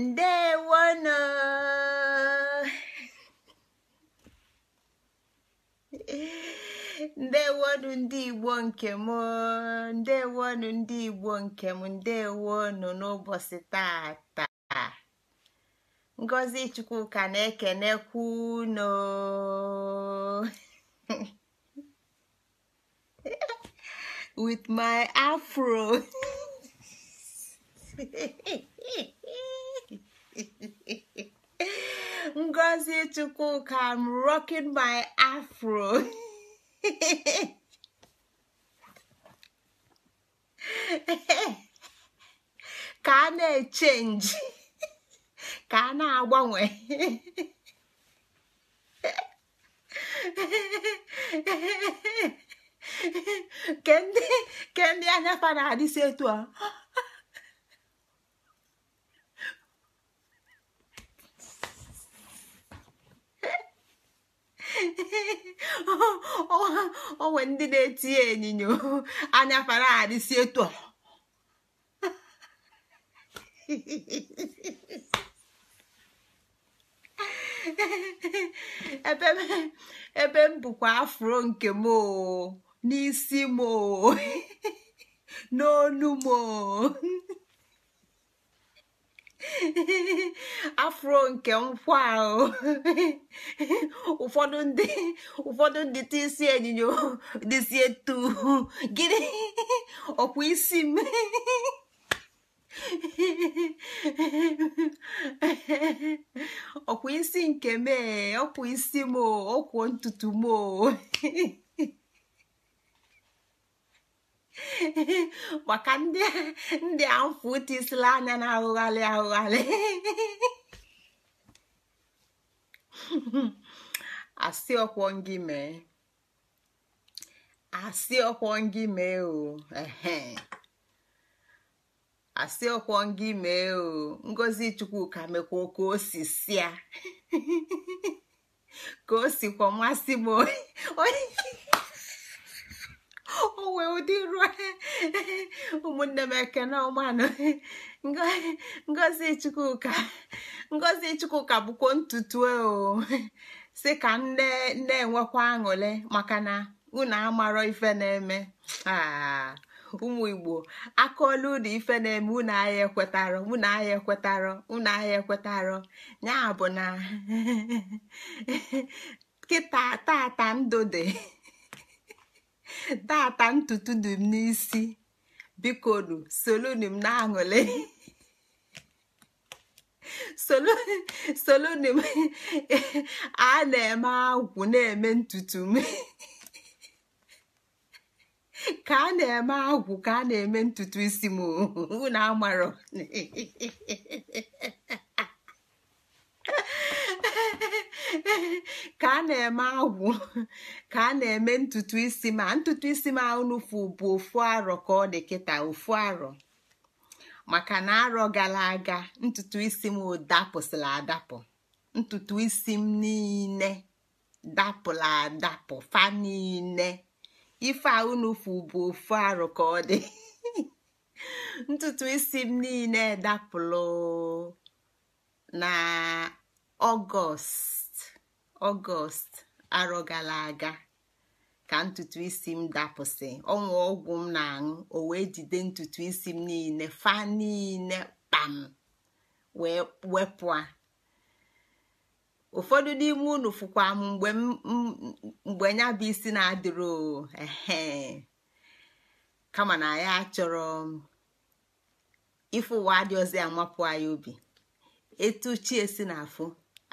ndewonu ndewonu ndị igbo nkem ndewonu ndị igbo nkem ndewonu n'ụbọchị tata ngozi ka na-ekenekwu unu with my afro ngozi chukwuka m rocking my afro ka a na-echenji ka a na-agbanwe ke ndị anya fa na-adịsi etu a onwe ndị na-eti enyinyo anya fara adịsi etu ebe m bụkwa afro nke m n'isi m n'onu m afro nke nkwa ahụ ụfọdụ ndị ụfọdụ ndị tisi enyinyo dịsi etu gịnị ọkwa isi m ọkwa isi nke mee ọkwa isi m ọkwụ ntutu m maka ndị a mfụ tisila anya na-ahụgharị ahụgharị asị ọkwọ ngị mee asị ọkwọ ngị mee o asị ọkwọ ngị mee o ngozi ka mekwa ka o si sịa ka o sikwa masị m onye o wee ụdị ruo ụmụnne m ekene ọmanụ ngozi chukwuka ngozi chukwuka bụkwa ntutu e o si ka nne nne enwekwa aṅụle maka na unu amarọ ife na-eme ah, ụmụ igbo akaolu ụlọ ife na-eme unu ahịa ekwetarọ unu ahịa ekwetarọ unu ahịa ekwetarọ ya bụ na kịta tata ndụ dị tata ntutu dị m n'isi bikonu solonu m na-aṅụli solonu m a na-eme agwụ na-eme ntutu m ka a na-eme agwụ ka a na-eme ntutu isi m na-amaro. ka a na-eme agwụ ka a na-eme ntutu isi ma ntutu isi m ahụnụfu bụ ofu arọ ka ọ dị kịta ofu arọ maka na arọ gara aga ntutu isi m dapụsịla adapụ ntutu isi m niile dapụla adapụ fa niile ife ahụnụfu bụ ofu arọ ka ọ dị ntutu isi m niile dapụlụ na ọgọst ọgọst arọ gara aga ka ntutu isi m dapụsị ọnwa ọgwụ m na-aṅụ o wee jide ntutu isi m niile fa niile kpam wee wepụ a ụfọdụ n'ime unu fụkwa m mgbe ya bụ isi na-adịrị ehe kama na ya achọrọ ifụ ụwa dị ọzọ amapụ anyị obi etu chi esi na afụ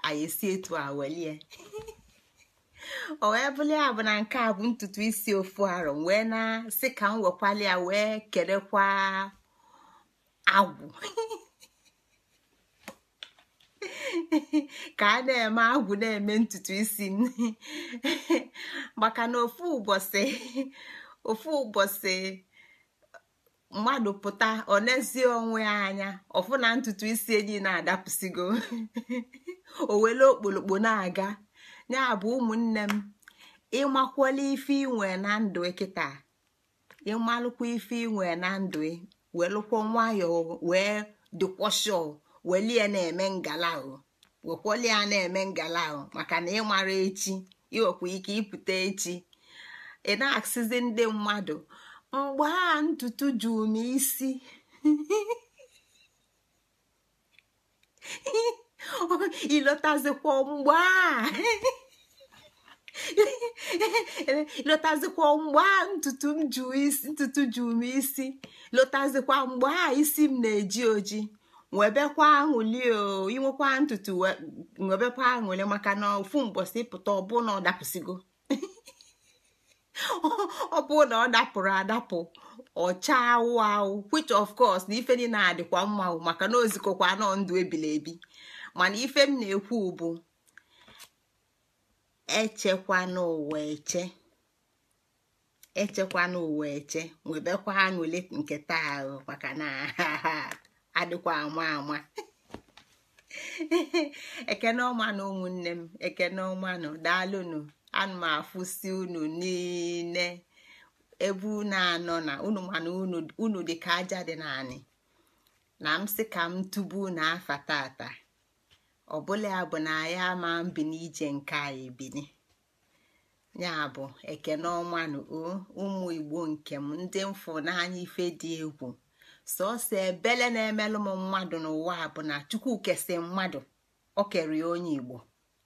anyị si etu a welie o wee bụli a bụ na nke a bụ ntutu isi ofu arọ wee na-asị ka m wekwali ya wee kerekwa agwụ ka a na-eme agwụ na-eme ntutu isi m maka na ofu ụbọchị ofu ụbọchị mmadụ pụta ọ onwe ya anya ọfụ na ntutu isi enyi na-adapụsigo o wele okpolokpo na-aga ya bụ ụmụnne m ịmakwala ife inwe na ndụ kịta ịmalụkwa ife inwe na ndụ welụkwọ nwayọọ wee dịkwọshọ welie na-eme ngala ahụ wekwalie ya na-eme ngala maka na ịmara echi iwekwa ike ịpụta echi ị na-asịzi ndị mmadụ mgbe a ntutu jụrụ m isi ịlọtazikwa mgbe a lotazikwa mgbe a ntutu m m isi lotazikwa mgbe a isi m na-eji oji nwebekwa aṅụli inwekwa ntutu nwebekwa aṅụli maka na ofu mbosi pụta ọbụna ọ dapụsigo ọ bụrụ na ọ dapụrụ adapụ ọcha awụ awụ which of course na ife niile adịkwa mma maka na ozikokwa anọ ndụ ebili ebi mana ife m na-ekwu bụ echekwa ụwa eche echekwa ụwa eche nwebekwa aṅụle nke taa ahụ maka na adịkwa ama ama ekene na ụmụnne m ekene ọmanụ daalụnụ ana m afụsi unu niile ebe unu anọ na unu mana unu dị ka aja dị naanị na m sị ka m tụbu unu afa tata ọbụla ya bụ na ya ama mbi n'ije nke anyị bini ya bụ ekene ọma na ụmụ igbo nke m ndị mfụ n'anya ife dị egwu sọsọ ebele na-emelụ m mmadụ n'ụwa bụ na chukwu kesi mmadụ ọ kere onye igbo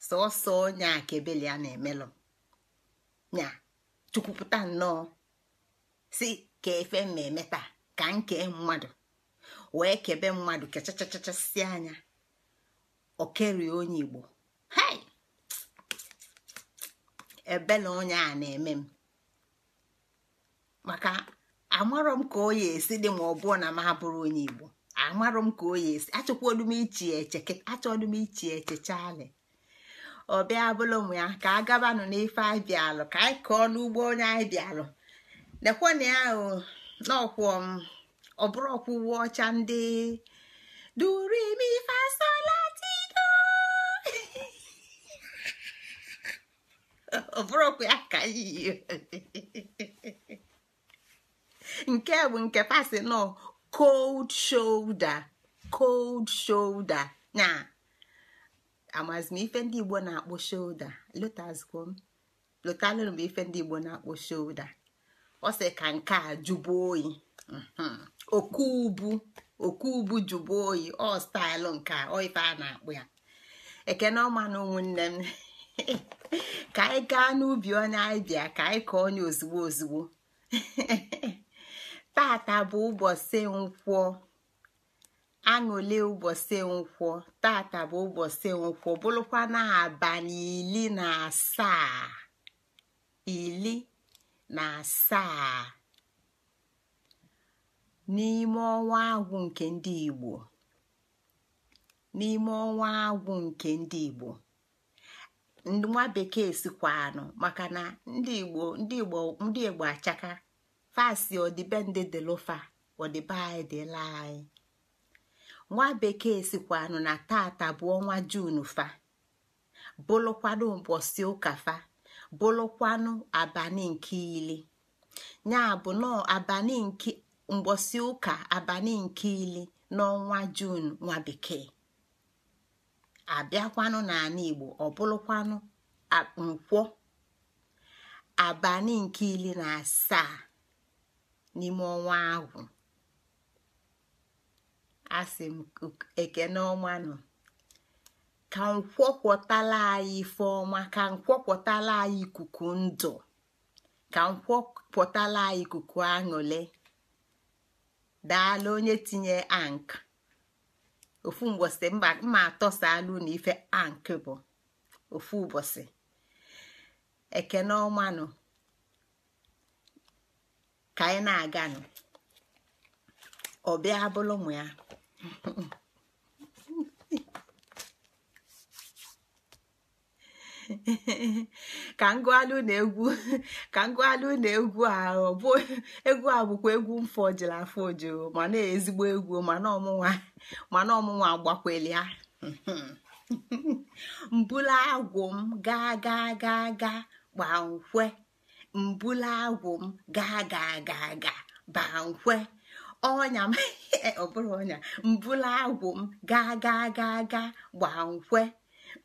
sọọsọ onye akebele a na-emelụ nya chukwupụta nnọọ si ka efe mmemme taa ka nke mmadụ wee kebe mmadụ kechachachachasị anya okerie onye igbo hei onye a na-eme m maka amarọ m ka oyi esi dị ma ọ na m abụrụ onye igbo amarọ m ka oyi esi achọkwa odum iche eche achọ odum iche eche ọbịa bụla bụlụ ụmụ ya ka a gabanụ n'ife anyị bịalụ ka anyị kọọ n'ugbo onye anyị bịalụ lekwana ya n'ọkwụ ọ bụrụ ọkwụ uwe ọcha ndị durimi fasolatido ọ bụrụ ọkwụ ya ka iyi nke bụ nke pasi nọ cold shoulder cold shoulder nyaa amazi m ife ndị igbo na-akpọ shoulda lotazikwo m lotalụrụ m ife ndị igbo na-akpọ shoulda ọ sị ka nke a jụbụ oyi oku ubu oku ubu jụbụ oyi ọ staịlụ nke ọ ife a na-akpụ ya ekene ọma na ụmụnne m ka anyị gaa n'ubi onye anyị bịa ka anyị kọọ onye ozugbo ozugbo taata bụ ụbọchị nkwụọ. aṅụle ụbọchị nkwọ tata bụ ụbọchị nkwọ bụrụkwa na abalị ili na asaa ili na asaa n'ime ọnwa agwụ nke ndị Igbo n'ime ọnwa agwụ nke ndị Igbo nwa bekee sikwanụ maka na ndị Igbo ndị Igbo ndị Igbo achaka fasi ọdịbe ndị dịlụfa ọdịbe anyị dịla anyị nwa bekee sikwanụ na tata bụ ọnwa jun fa bụlụkwanụ mbosi ụka fa bụlụkwanụ abalị nke ili ya bụ nọọ abalị nke mbosi ụka abalị nke ili n'ọnwa jun nwa bekee abịakwanụ n'ala igbo ọbụlụkwanụ nkwọ abalị nke ili na asaa n'ime ọnwa ahụ asị m ekene nọ ka nkwọkwọtala anyị ife ka nkwọkwọtala anyị ikuku ndụ ka nkwọpụtala anyị ikuku aṅụle daala onye tinye ank ofu mgbọsị mma atọsalụ na ife ank bụ ofu ụbọchị n'ọnwa nọ ka anyị na-aganụ ọ bịa bụlụ ya ka ngụalụ na egwu ka ngụalụ na egwu ahụ bụ egwu a bụkwa egwu mfọ jiri afọ ma na ezigbo egwu mana ọmụnwa mana ọmụnwa agbakweli ya mbula agwụ m gaa gaa gaa gaa gbanwee mbula agwụ m gaa gaa gaa gaa gbanwee ọnya ọ bụrụ ọnya mbula agwụ m gaa gaa gaa gaa gbaa nkwe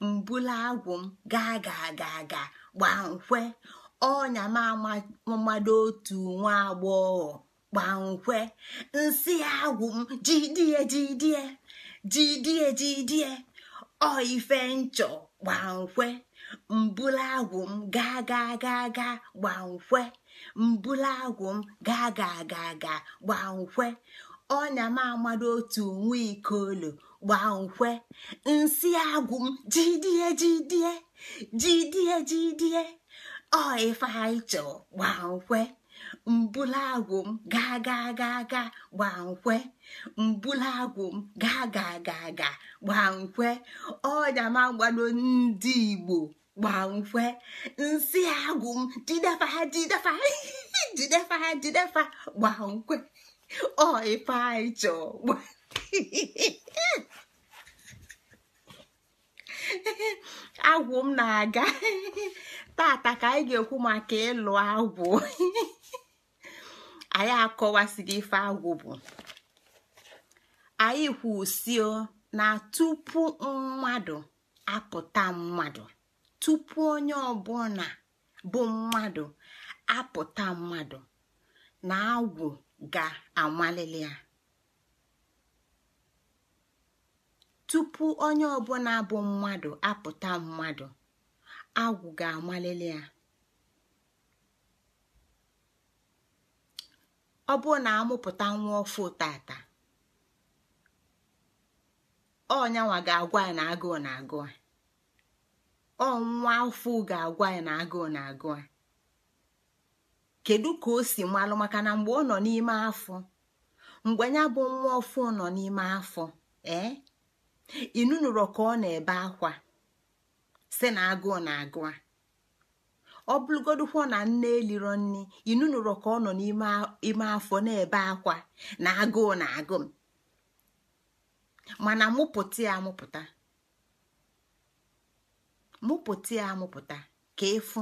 mbula agwụ m gaa gaa gaa gaa gbaa nkwe ọnya m amado otu nwa agbọghọ gbaa nkwe nsị agwụ m jidie jidie jidie jidie ọ ife nchọ gbaa nkwe mbula agwụ m gaa gaa gaa gaa gbaa nkwe mbula agwụ m gaa ga ga ga gbaa nkwe ọnya m amado otu nwa ikoolu gbaa nkwe nsị agwụ m jidie jidie jidie jidie ọ ife gbaa nkwe mbula agwụ m gaa gaa gaa gaa gbaa nkwe mbula agwụ m gaa gaa gaa gaa gbaa nkwe ọnya m agbado ndị igbo gbankwe nsị agụ m jidefa ha jidefa jidefa gbankwe ọ ife anyị chọọ agwụ m na-aga tata ka anyị ga-ekwu maka ịlụ agwụ anyị akọwasịrị ife agwụ bụ anyị kwusio na tupu mmadụ apụta mmadụ tupu onye ọbụla bụ mmadụ apụta mmadụ na agwụ ga-amalili ya tupu bụ mmadụ apụta mmadụ agwụ ga-amalili ya na amụpụta nwa tata ọnyanwa ga-agwa ya na agụụ na agụụ ọ nwa afọ ga-agwa ya na agụụ na-agụ a kedu ka o si malụ maka na mgbe ọ nọ n'ime afọ mgbe ya bụ nwa ofu nọ n'ime afọ ee inunuro ka ọ na-ebe akwa si na agụụ na-agụ a ọ na nne eliro nne inunuro ka ọ nọ n'ime afọ na-ebe akwa na agụụ na agụụ mana mụpụta ya amụpụta mụpụta ya amụpụta ka efu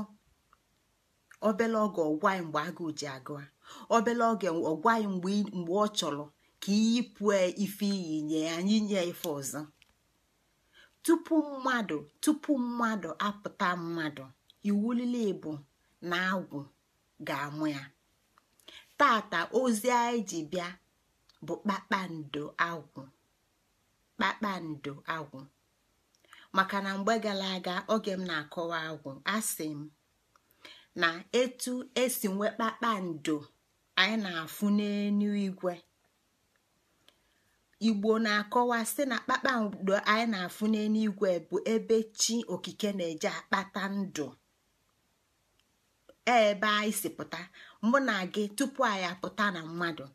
obele oge ọgwa mgbe agụụ ji agụa obele oge ọgwa mgbe ọ chọrọ ka iyipụ ife iyi nye ya nye ife ọzọ tupu mmadụ tupu mmadụ apụta mmadụ iwulile ibu na agwụ ga-amụ ya tata ozi anyị ji bịa bụ kpakpando agwụ kpakpando agwụ maka na mgbe gara aga oge m na-akọwa agwụ asị m na etu esi nwee kpakpando anyị na-afụ n'enu igwe igbo na-akọwa sị na kpakpando anyị na-afụ n'enu igwe bụ ebe chi okike na-eje akpata ndụ e ebe anyị si pụta mụ na gị tupu anyị apụta na mmadụ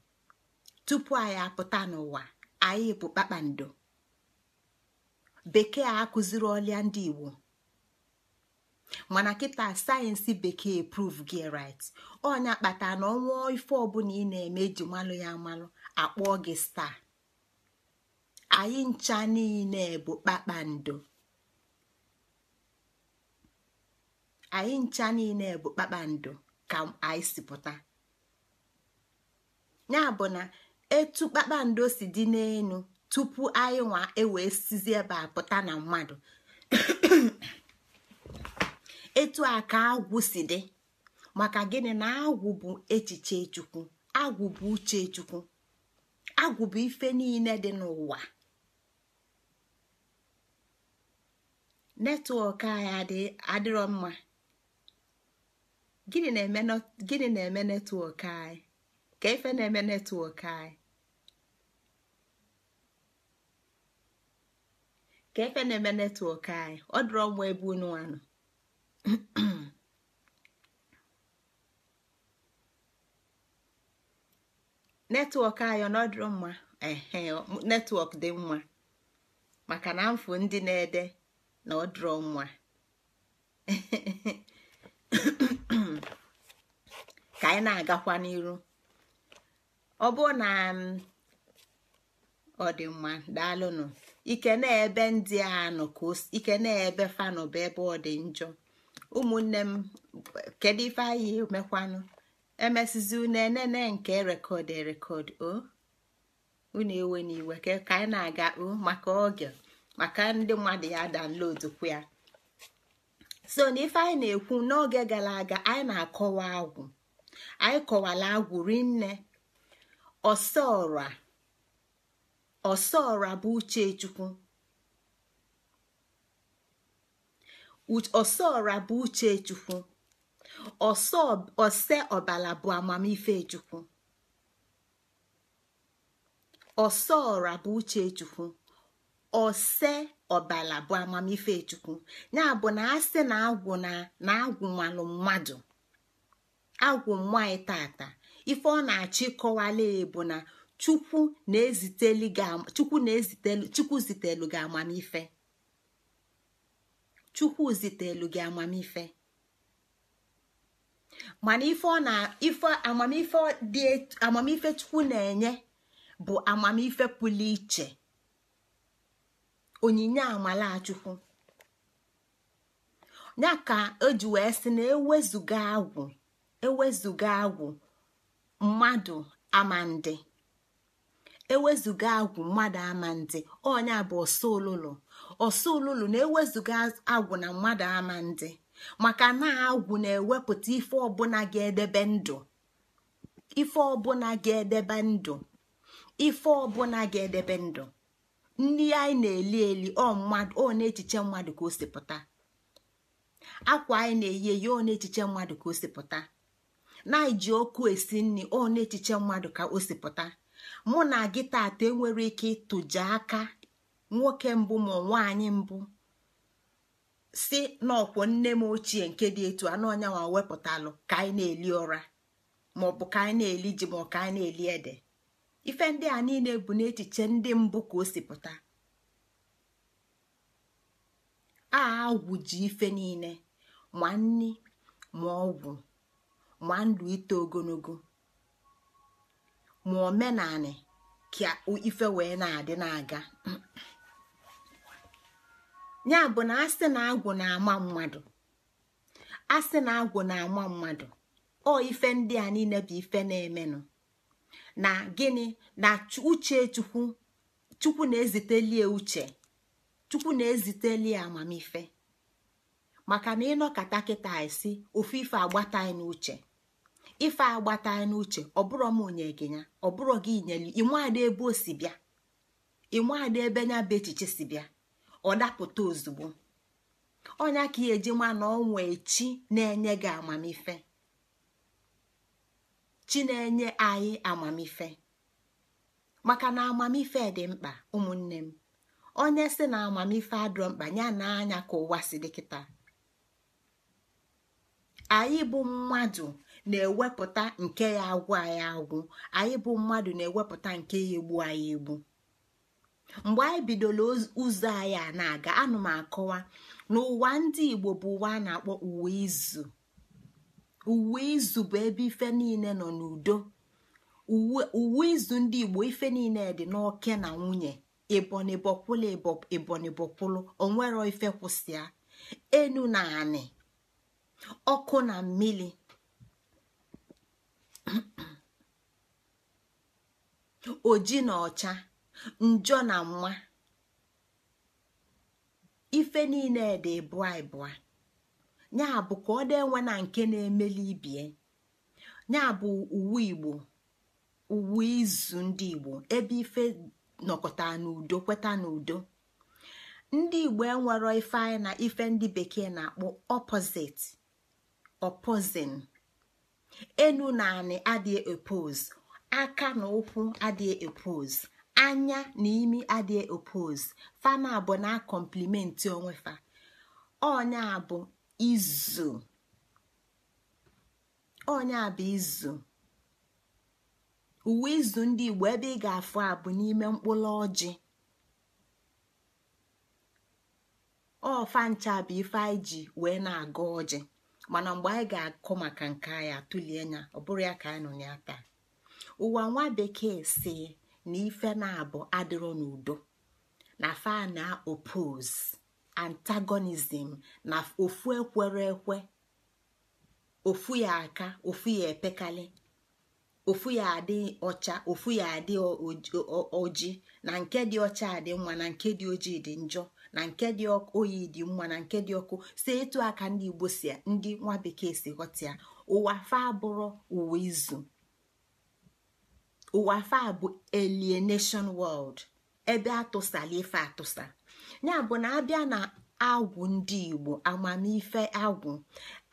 tupu anyị apụta n'ụwa anyị bụ kpakpando bekee akụziri ọlịa ndị igbo mana kịta sayensị bekee proof gị ọ ọnya kpata na ọnwa ife ọbụla ị na-eme ji malụ ya amalụ akpọọ gị staa anyị ncha niile bụ kpakpando anyị ncha niile bụ kpakpando ka anyị si pụta ya bụ na etu kpakpando si dị n'elu tupu anyị nwa ewee sizi ebe a pụta na mmadụ etu a ka agwụ si dị maka gịnị na agwụ bụ echiche chukwu agwụ bụ uche chukwu agwụ bụ ife niile dị n'ụwa netwọk anyị adịrọ mma gịnị na-eme netwọk anyị ka ife na-eme netwọk anyị ka efe na-eme netwọk anyị ọ dịrọ mma ebe unu netwọk anyị ọ nọdụrụ mma ehe netwọk dị mma maka na mfụ ndị na-ede na ọ dịrọ mma ka anyị na-agakwa n'iru ọ bụ na mm, ọ dị mma daalụnụ ike na-ebe ndị anọ ka ike na-ebe fanụ bụ ebe ọ dị njọ ụmụnne m kedu ife anyị mekwanụ emesizi unu enene nke rekọd erekọd o unu ewe n'iwe ka anyị na-aga o maka oge maka ndị mmadụ ya danlodkwu ya so na ife anyị na-ekwu n'oge gara aga anyị na-akọwa agwụ anyị kọwala agwụ rinne ọsọọra ọsọọra bụ uchechukwu ọsọọra bụ uchechukwu ose ọbala bụ amamife chukwu ọsọọra bụ uchechukwu ọse ọbala bụ amamife chukwu ya bụ na asị na agwụ na agwụ malụ mmadụ agwụ nwaanyị tata ife ọ na achị ịkọwala bụ na. chukwu zitelu gị amamife chukwu zitelu gị amamife mana ife ọ na ife amamife dị amamife chukwu na-enye bụ amamife pụlụ iche onyinye amala chukwu, ya ka eji wee sị na ewezuga agwụ ewezuga agwụ mmadụ amandị ewezụga agwụ mmadụ ama ndị ọnya bụ ọsọ olulu na ewezuga agwụ na mmadụ ama ndị maka na agwụ na-ewepụta ife ọbụla ga-edebe ndụ ife ọbụla ga-edebe ndụ ife ọbụla ga-edebe ndụ ndị anyị na-eli eli ọ echiche mmadụ ka o si akwa anyị na-eyi eyi ọ echiche mmadụ ka o si na anyị ọkụ esi nri ọ echiche mmadụ ka o si mụ na gị tata enwere ike ịtụja aka nwoke mbụ ma nwaanyị mbụ si n'ọkwọ nne m ochie nke dị etu anụ ọnyanwa wepụtalụ ka anyị na-eli ụra maọbụ ka anyị na-eli ji ma ka anyị na-eli ede ife ndị a niile bụ n'echiche ndị mbụ ka o si pụta a ife niile ma nni ma ọgwụ ma ndụ ito ogologo ma omenanị ka ife wee na-adị na-aga ya bụ na asị na agwụ na-ama mmadụ asị na agwụ na-ama mmadụ ọ ife ndị a niile bụ ife na-emenụ na gịnị na uche chukwu chukwu na-ezitelie uche chukwu na-ezitelie amamife maka na ịnọkọta kịta isi ofu ife agbataghị n'uche ife agbata n'uche ọbụrụ m onye gị ya ọbụrụ gị nyelu ịnwaada ebe o si bịa ịnwaada ebe nya bụ echiche si bịa ọ dapụta ozugbo onya ka ya eji ma na ọnwa echi na-enye gị amamife chi na-enye anyị amamife maka na amamife dị mkpa ụmụnne m onye si na amamife adịrọ mkpa ya na ka ụwa si dịkịta anyị bụ mmadụ na-ewepụta nke ya agwụ anyị agwụ anyị bụ mmadụ na-ewepụta nke ya egbu anyị egbu mgbe anyị bidoro ụzọ anyị a na-aga anụ m akọwa n'ụwa ndị igbo bụ ụwa a na-akpọ uwe izu uwe izu bụ ebe ife niile nọ n'udo uwe izu ndị igbo ife niile dị n'oke na nwunye ibonibọkwụlụ ibonibọkwụlụ onwere ife kwụsịa enu na anị ọkụ na mmiri oji na ọcha njọ na nwa ife niile dị bụa ịbụa ya bụ ka ọ dị enwe na nke na-emeli ibie ya bụ uwe igbo uwe izu ndị igbo ebe ife nọkọta n'udo kweta n'udo ndị igbo enwero ife anyị na ife ndị bekee na-akpọ opozit opozin enu na anị adịghị aka na ụkwụ adịghị epose anya na imi adịghị epose fama abụ na kọmplimenti onwefa ọnya bụ izu ọnya bụ izu uwe izu ndị igbo ebe ị ga-afụ abụ n'ime mkpụrụ ọjị ọfa ncha bụ ife anyị ji wee na-aga ọjị mana mgbe anyị ga-akụ maka nke anyị atụlie anya ọ bụrụ ya ka anyị nọ ya taa ụwa nwa bekee si na ife na-abụ adịrọ n'udo na fa na opose antagonism na ofu ekwere ekwe ofu ya aka ofu ya epekali ofu ya adị ọcha ofu ya adị oji na nke dị ọcha adị mma na nke dị ojii dị njọ na nke dị oyi dị mma na nke dị ọkụ si etu aka ndị igbo si ndị nwa bekee si ghọta ya ụwa fa abụrụ ụwa izu ụwa a bụ nation world ebe atụsala ife atụsa ya bụ na abịa na agwụ ndị igbo amamife agwụ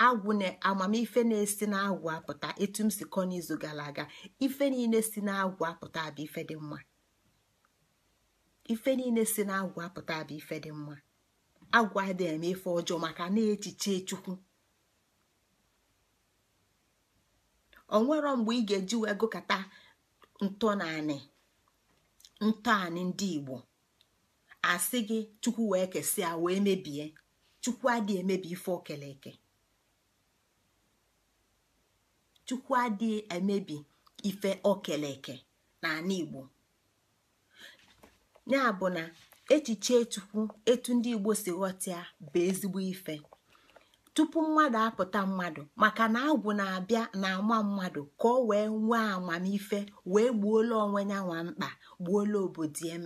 agwụ na amamife na-esi n'agwụ apụta etu m si kọ n'izu gara aga ife niile si n'agwụ apụta bụ ife dị mma ife niile si n'agwụ apụta bụ ife dị mma agwụ adịghị eme ife ọjọọ maka na-echiche chukwu onwero mgbe ị ga-eji wee ntọnaanị ntọanị ndị igbo asị gị chukwu wee kesịa wee mebie chukwu adịghị emebi ife okele eke chukwu adịghị emebi ife okele eke n'ala igbo ya bụ na echiche chukwu etu ndị igbo si ghọta bụ ezigbo ife tupu mmadụ apụta mmadụ maka na agwụ na-abịa na-ama mmadụ ka ọ wee nwee amamife wee gbuolu onwe ya nwa mkpa gbuolu obodo ya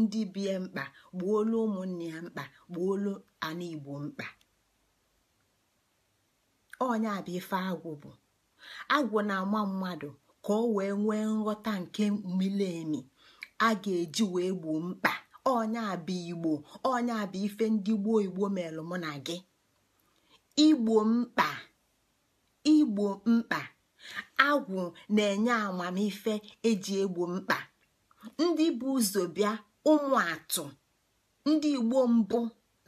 ndị bie mkpa gbuolu ụmụnne mkpa gbuolu ala Igbo mkpa na-ama mmadụ ka nwee nghọta nke a ga-eji wee gbuo mkpa Igbo onye abịa ife ndị gboo Igbo melụ mụ na gị igbo mkpa igbo mkpa agwụ na-enye amamife eji egbo mkpa ndị bụ ụzọ bịa ụmụ atụ ndị igbo mbụ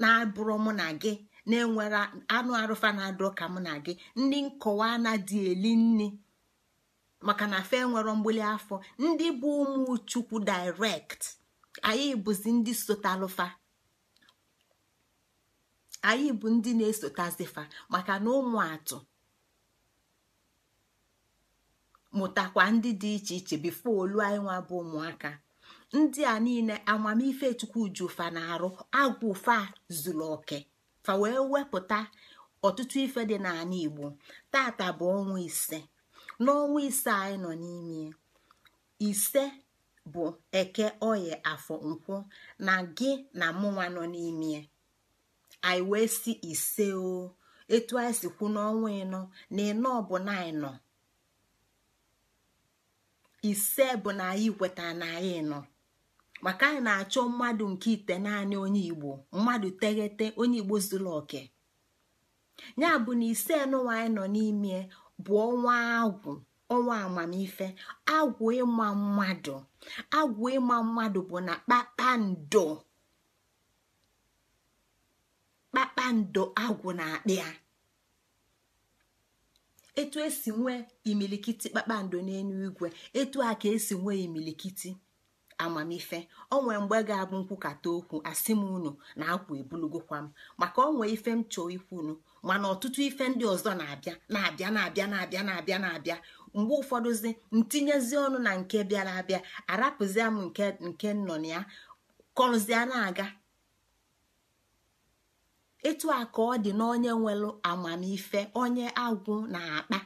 na-abụrụ mụ na gị na-enwere anụ arụfa na-adọ ka mụ na gị ndị nkọwa anadị eli nni maka na fe nwere mgbili afọ ndị bụ ụmụ chukwu direct anyị bụzi ndị sotalụfa anyị bụ ndị na-esotazifa maka na ụmụ atụ mụtakwa ndị dị iche iche bifo olu anyị nwa bụ ụmụaka ndị a niile amamife chukwu ju na-arụ agwụ fa zuru oke fa wee wepụta ọtụtụ ife dị n'ala igbo tata bụ ọnwa ise n'ọnwa ise anyị nọ n'ime ise bụ eke oye afọ nkwụ na gị na mụnwa nọ n'ime anyị wee si ise o etu anyị si kwu n'ọnwa ịnọ na ịnọ bụ na ịnọ ise bụ na anyị kweta na anyị nọ maka anyị na-achọ mmadụ nke ite naanị onye igbo mmadụ teghete onye igbo zuru oke ya bụ na ise nụwa anyị nọ n'ime bụ ọnwa agwụ ọnwa amamife agwụ ịma mmadụ agwụ ịma mmadụ bụ na kpakpando kpakpando agwụ na-akpị ya etu esi nwee imilikiti kpakpando n'elu igwe etu a ka esi nwee imilikiti amamife ọ nwere mgbe ga-abụ nkwukata okwu asị m unu na akwa ebulugokwa m maka ọ nwee ife m chọọ ikwunu mana ọtụtụ ife ndị ọzọ na-abịa na-abịa na-abịa na-abịa na-abịa na-abịa mgbe ụfọdụzi ntinyezi ọnụ na nke bịara abịa arapụzia m nke nke nọ na ya kọrụzia na-aga etu a ka ọ dị na onye nwelụ amamife onye agwụ na-akpa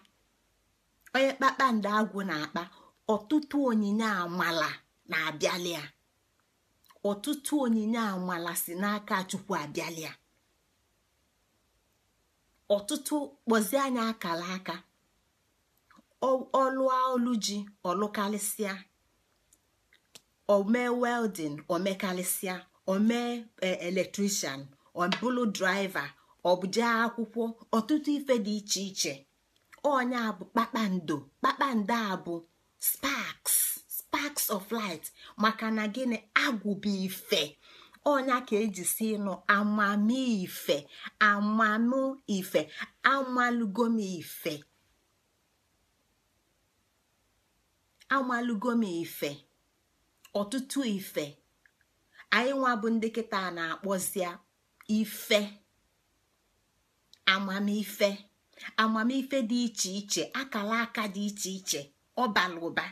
onye kpakpando agụ na-akpa ọtụtụ onyinye amala na-abịalịa ọtụtụ onyinye amala si n'aka chukwu abịalịa ọtụtụ kpọzie anya akala aka ọlụ olu ji ọlụkarịsịa omee welding omekarịsịa omee eh, electrician ọbụlụ draiva ọbụje akwụkwọ ọtụtụ ife dị iche iche onye a bụ kpakpando kpakpando a bụ spaks spaks of light maka na gịnị agwụba ife ọnya ka eji si nụ amamife amanụ ife amalugom ife amalugom ife ọtụtụ ife anyị nwa bụ ndị kịta na akpọzi ife amamife amamife dị iche iche akala aka dị iche iche ọbala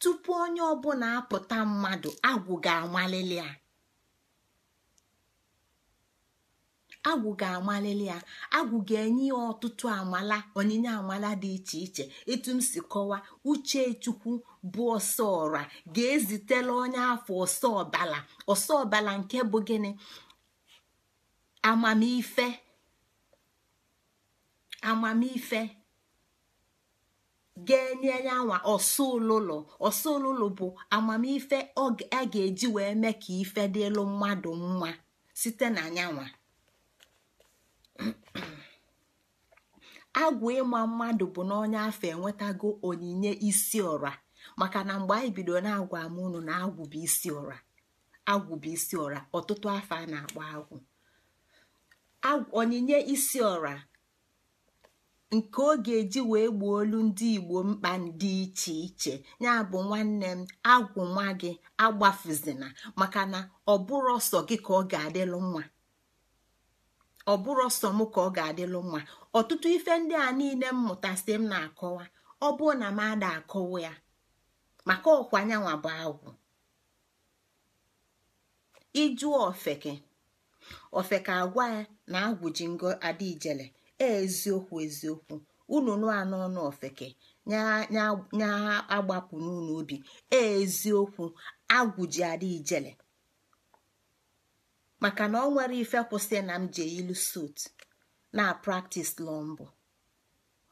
tupu onye ọbụla apụta mmadụ agwụ ga-amalili ya agwụ ga-amalili ya ga-enye ya ọtụtụ amala onyinye amala dị iche iche etu m si kọwa uche chukwu bụ ọsọ ọra ga-ezitela onye afọ ọsọ ọbala ọsọ ọbala nke bụ gịnị amamife amamife ga-enye yanwa ọsụlụlụ ọsụlụlụ bụ amamife a ga-eji wee mee ka ife dịlụ mmadụ mma site na yanwa agwụ ịma mmadụ bụ n'ọnya afọ enwetago onyinye isi ọra maka na mgbe anyị bidoro na-agwa unu na agwụ bụ isi ọra agwụ bụ isi ọra ọtụtụ afọ a na-akpọ agwụ onyinye isi ọra nke ọ ga-eji wee gbuo olu ndị igbo mkpa dị iche iche ya bụ nwanne m agwụ nwa gị agbafuzina maka na ọ bụrụ ọsọ gị ka ọ ga-adịlụ nwa ọ m ka ọ ga-adịlụ nwa ọtụtụ ife ndị a niile mmụta si m na-akọwa ọ bụrụ na m ada akọwa ya maka ọkwa anyanwụ bụ agwụ ịjụọ ofeke ofeke agwa ya na ngo adaijele e, eziokwu eziokwu unu nụa n'ọnụ ofeke nya agbapụ n'ụlọ obi e, eziokwu agwụji adaijele maka na ọ nwere ife kwụsị na m ji ilu sot na praktis lọọ mbụ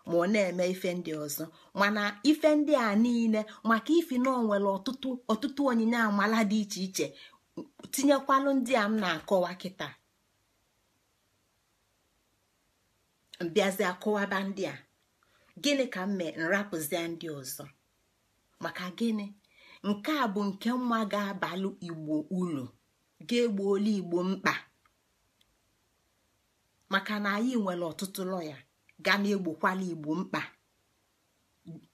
ma ọ na-eme ife ndị ọzọ mana ife ndị a niile maka ifi na onwere ọtụtụ ọtụtụ onyinye amala dị iche iche tinyekwalụ ndị a m na-akọwa kịta mbịazie ndị a gịnị ka m mee nrapụzie ndị ọzọ maka gịnị nke a bụ nke nwa ga-abalụ igbo ulu ga-egbuola igbo mkpa maka na anyị nwere ọtụtụ lọya ga na-egbokwala igbo mkpa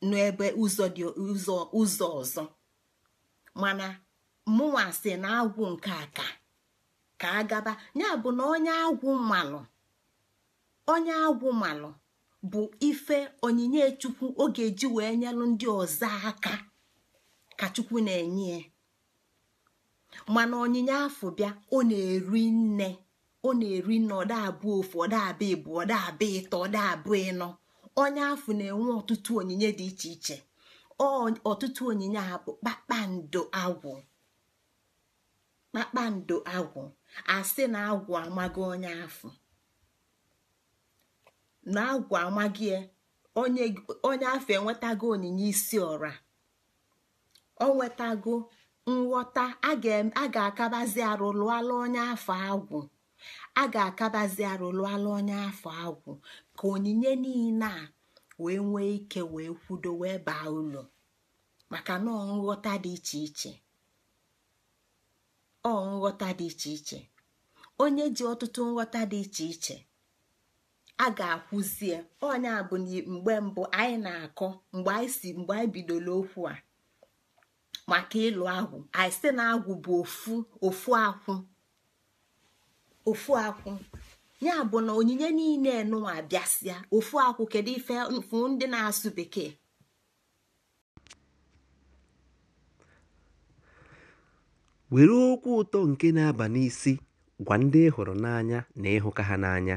n'ebe ụzọ dị ụzọ ọzọ mana mụnwa sị na agwụ nke a ka ka agaba ya bụ na onye agwụ mmalụ onye agwụ malụ bụ ife onyinye chukwu ọ ga-eji wee nyelụ ndị ọzọ aka ka chukwu na-enye mana onyinye afọ bịa ọ na-eri nne ọ na-eri nne ọda abụọ ofu ọda abịa ịbụ ọda abịa ịtọ ọda abụọ ịnọ onye afọ na-enwe ọtụtụ onyinye dị iche iche ọtụtụ onyinye abụ bụ kpakpando agwụ kpakpando agwụ asị na agwụ amaghị onye afọ na agwụ amaghị e, onye afọ enwetago onyinye isi ọra ọ nwetago nghọta a ga-akabazi arụ lụọla onye afọ agwụ a ga-akabazi arụ lụọla onye afọ agwụ ka onyinye niile a wee nwee ike wee kwudo wee baa ụlọ maka na nghọta dị iche iche ọ nghọta dị iche iche onye ji ọtụtụ nghọta dị iche iche a ga-akwụzie onye bụ mgbe mbụ anyị na-akọ mgbe anyị si mgbe anyị bidoro okwu a maka ịlụ agwụ anyị site na agwụ bụ ofu ofu akwụ ofu akwụ ya bụ na onyinye niile nụwa bịasịa ofu akwụ kedu ife mfu ndị na-asụ bekee were okwu ụtọ nke na-aba n'isi gwa ndị ị hụrụ n'anya na ịhụka ha n'anya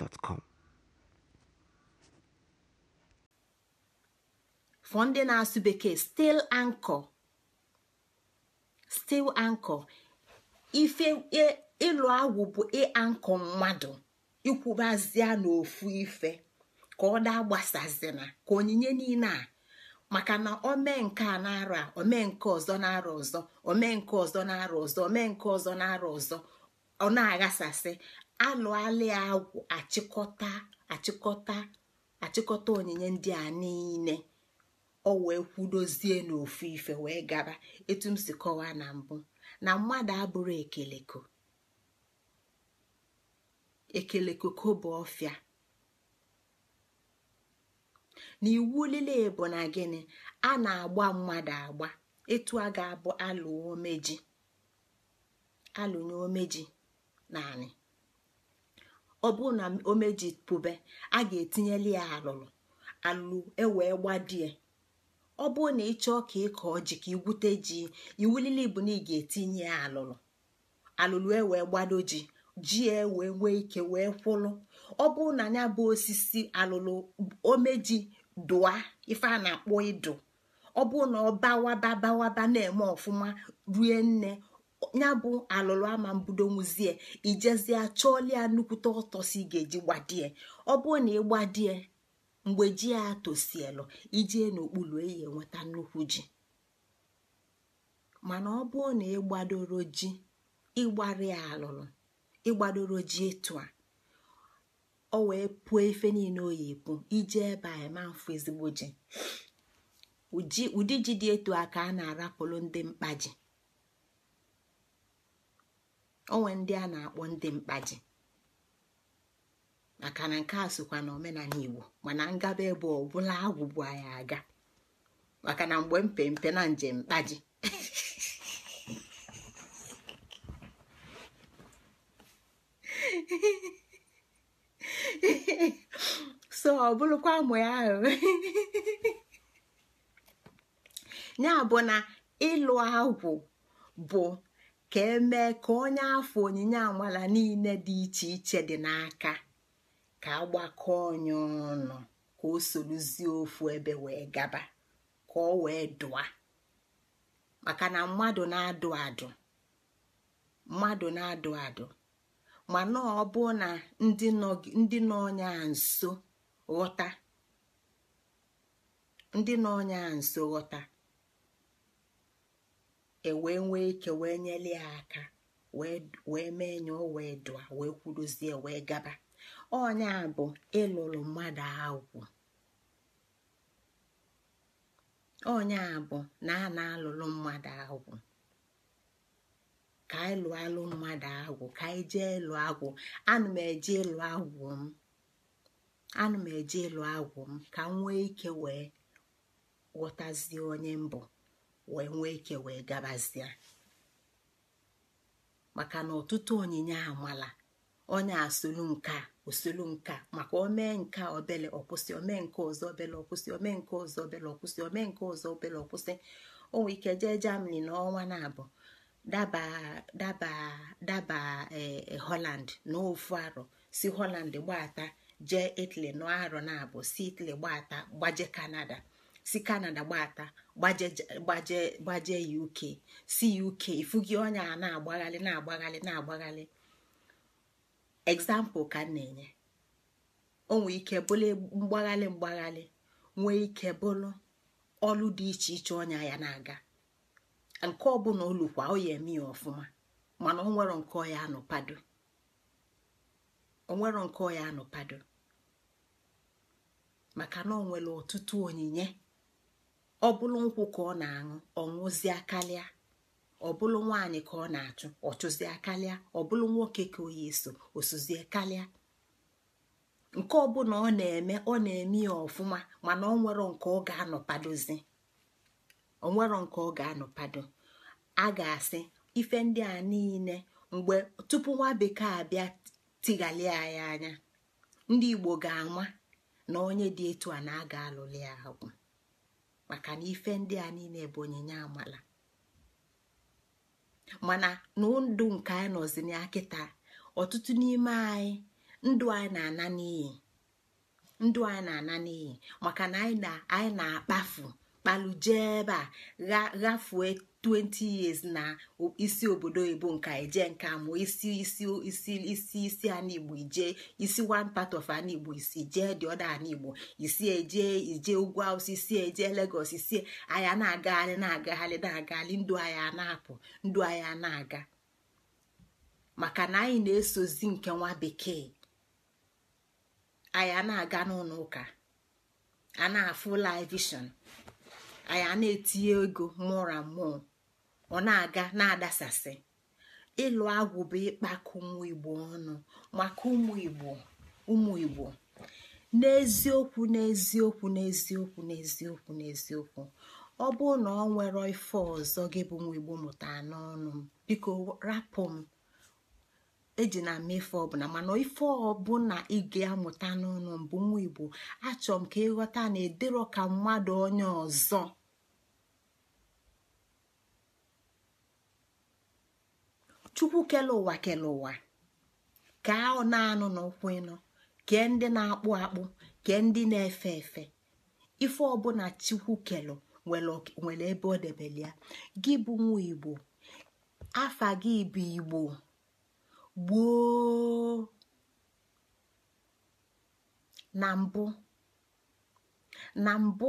gmail.com for ndị na-asụ bekee stil anko stil anko ife ịlụ e, agwụ bụ ịankọ e mmadụ ikwubazia n'ofu ife ka ọ daa gbasazina ka onyinye niile a maka na omee nke a na omee nke ọzọ na-arụ ọzọ omee nke ọzọ na-arụ ọzọ omee nke ọzọ na-arụ ọzọ ọ na-aghasasị alụalịa agwụ achịkọta achịkọta achịkọta onyinye ndị a niile o wee kwudozie n'ofu ife wee gaba etu m si kọwaa na mbụ na mmadụ abụrụ ekeleko ekeleko bụ ọfịa na iwu lile bụ na gịnị a na-agba mmadụ agba etu a ga-abụ alụ omeji alụnye omeji naanị ọ bụrụ na o mejipụbe a ga-etinyeli ya alụlụ alụlụ ewee gbadie ọ bụrụ na ị chọọ ka ịkọ ji ka igwute ji iwu bụ na ị ga-etinye ya alụlụ alụlụ ewee gbado ji ji ewee nwee ike wee kwụlụ ọ bụrụ na ya bụ osisi alụlụ omeji dụa ife a na-akpọ ịdụ ọ bụrụ na ọ bawaba bawaba na-eme ọfụma rue nne ya bụ alụlụ ama mbudo nwuzie ijezie chọọlia nnukwute ọtọ si ga-eji gbadie ọ bụrụ na ị gbadie mgbe ji ya tosielu ijie n'okpuru eyi enweta nnukwu ji mana ọ bụrụ na ịgbadoro ji ịgbari ya alụlụ ji etu a ọ wee pụọ efe niile oyi epu iji ebe a ma ezigbo ji ụdị ji dị etu a ka a na arapụlụ ndị mkpa onwe ndị a na-akpọ ndị mkpaji maka na nke a sokwa na omenala igbo mana ngaba ebe ọbụla agwụgbu anyị aga maka na mgbe mpempe na njem mkpaji so ọ bụrụkwa mụ ya ahụ ya bụ na ịlụ agwụ bụ ka emee ka onye afọ onyinye amala niile dị iche iche dị n'aka ka agbakọ onye ọnụ ka o sorozie ofu ebe wee gaba ka ọ wee dụa maka na mmadụ na-adụ adụ mmadụ na-adụ adụ mana ọ bụ na ndị nọ onye nso ghọta ndị nọ nso ghọta e nwee ike wee nyeli ya aka wee mee nye wee dụa wee kwuruzie wee gaba onye bụ ịlụrụ mmadụ agwụ onye a bụ na a na-alụrụ mmadụ agwụ ka anyị lụọ alụ mmadụ agwụ ka anyị jee ịlụ agwụ anụ m eje ịlụ agwụ m m eje ịlụ agwụ m ka m nwee ike wee ghọtazie onye mbụ wee nwee ike wee gabazie maka na ọtụtụ onyinye amala onye asolu nka osolu nka maka omee nke obele ọkwụsị omee nke ọzọ obele ọkwụsị omee nke ọzọ obele ọkwụsị omee nke ọzọ obele ọkwụsị o ike jee Germany n'ọnwa na-abụ daba daba daba eh, Holland ofu arọ si Holland gbata jee Italy n'arọ na-abụ si Italy gbata gbaje Canada si kanada gbata gbaje ya uk si ya uke ifu gị a na-agbaghalị na-agbaghalị na-agbaghalị egzampụl ka na-enye o ike bụlụ mgbaghalị mgbaghalị nwee ike bụlụ ọlụ dị iche iche ọnya ya na-aga nke ọbụla olukwa ọ ya eme ya ọfụma mana onwero nke ọya anụpado onwero nke ọya anụpado maka na onwere nwere ọtụtụ onyinye ọbụlụ nkwụ ka ọ na-aṅụ ọ ṅụzịa karịa ọ nwaanyị ka ọ na-achụ ọ chụzie karịa nwoke ka oyi eso osuzie karịa nke ọbụla ọ na-eme ọ na-eme ya ọfụma mana ọ nke ọ ga-anọpadozi ọ nke ọ ga-anọpado a ga-asị ife ndị a niile mgbe tupu nwa bekee abịa tighalia ya anya ndị igbo ga-anwa na onye dị etu a na aga ga ya agwụ maka na ife ndị a niile bụ onyinye amala mana ndụ nke anyị nọzi na kịta ọtụtụ n'ime anyị ndụ anyị na-ana n'iyi ndụ anyị na-ana maka na anyị na-akpafu kpalu jee ebe a ghafuo 20 years na isi obodo oyibo nka eje nka mụọ isi isi isi isi isi anigbo ije isi one part of anigbo isi jee dị ọda anigbo isi eje ije ugwu awụsa isi eje Lagos isi e, anya na-agagharị na-agagharị na-agagharị ndụ anya na-apụ ndụ anya na-aga maka na anyị na-esozi nke nwa bekee Anya na-aga n'ụlọ ụka a na-afụ laivishọn anyị na-etinye ego mụra mmụọ ọ na-aga na-adasasị ịlụ agwụ bụ ịkpakọ ụmụ igbo ọnụ maka ụmụ igbo ụmụ igbo n'eziokwu n'eziokwu n'eziokwu n'eziokwu n'eziokwu ọ bụrụ na ọ nwere ife ọzọ gị bụ ụmụ igbo mụta n'ọnụ m biko rapụ m eji na ama ife ọbụla mana ife ọbụla ị amụta n'ọnụ m bụ nwa igbo achọ m ka ịghọta na edero ka mmadụ onye ọzọ chukwu kele ụwa kele ụwa ka ọ na-anụ n'ụkwụ ịnọ kee ndị na-akpụ akpụ kee ndị na-efe efe ife ọbụla chukwu kela nwere ebe ọ debere ya gị bụ nwa igbo afa gị bụ igbo gboo na mbụ na mbụ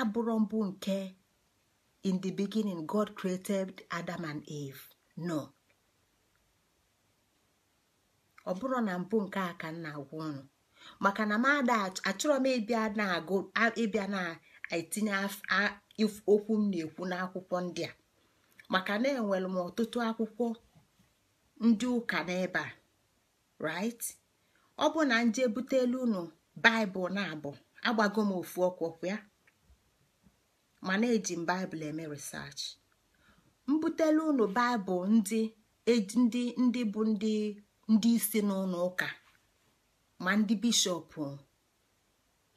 abụrụ mbụ nke in the beginning god created adam and eve no ọ bụrụ na mbụ nke a ka m na-agwa unu maka na m ada achọrọ m ịbịa na-agụ ịbịa na-etinye okwu m na-ekwu n'akwụkwọ ndị a maka na enwere m ọtụtụ akwụkwọ ndị ụka n'ebe a right ọ bụ na nje butelu ụnụ baịbụl na-abụ agbago m ofu ọkwọkwa ya mana eji m baịbụl eme research mbutelu unu baịbụl ndị e, ndị ndị bụ ndị ndị isi n'ụlọ ụka ma ndị bishọp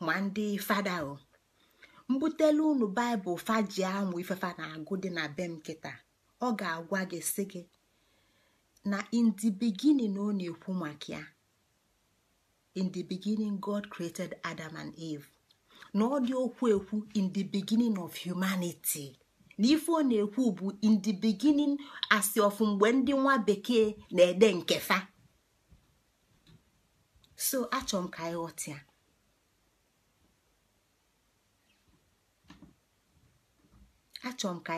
ma ndị fada mbutele unu baịbụl faji amụ ifefa na-agụ dị na be m ọ ga-agwa gị sị gị na in the beginning ọ na-ekwu maka ya in the beginning god created adam and eve na ọ dị okwu ekwu in the beginning of humanity na ife ọ na-ekwu bụ in the beginning asị ọfụ mgbe ndị nwa bekee na-ede nkefa so achọ m ka anyị ghọtịa achọ m ka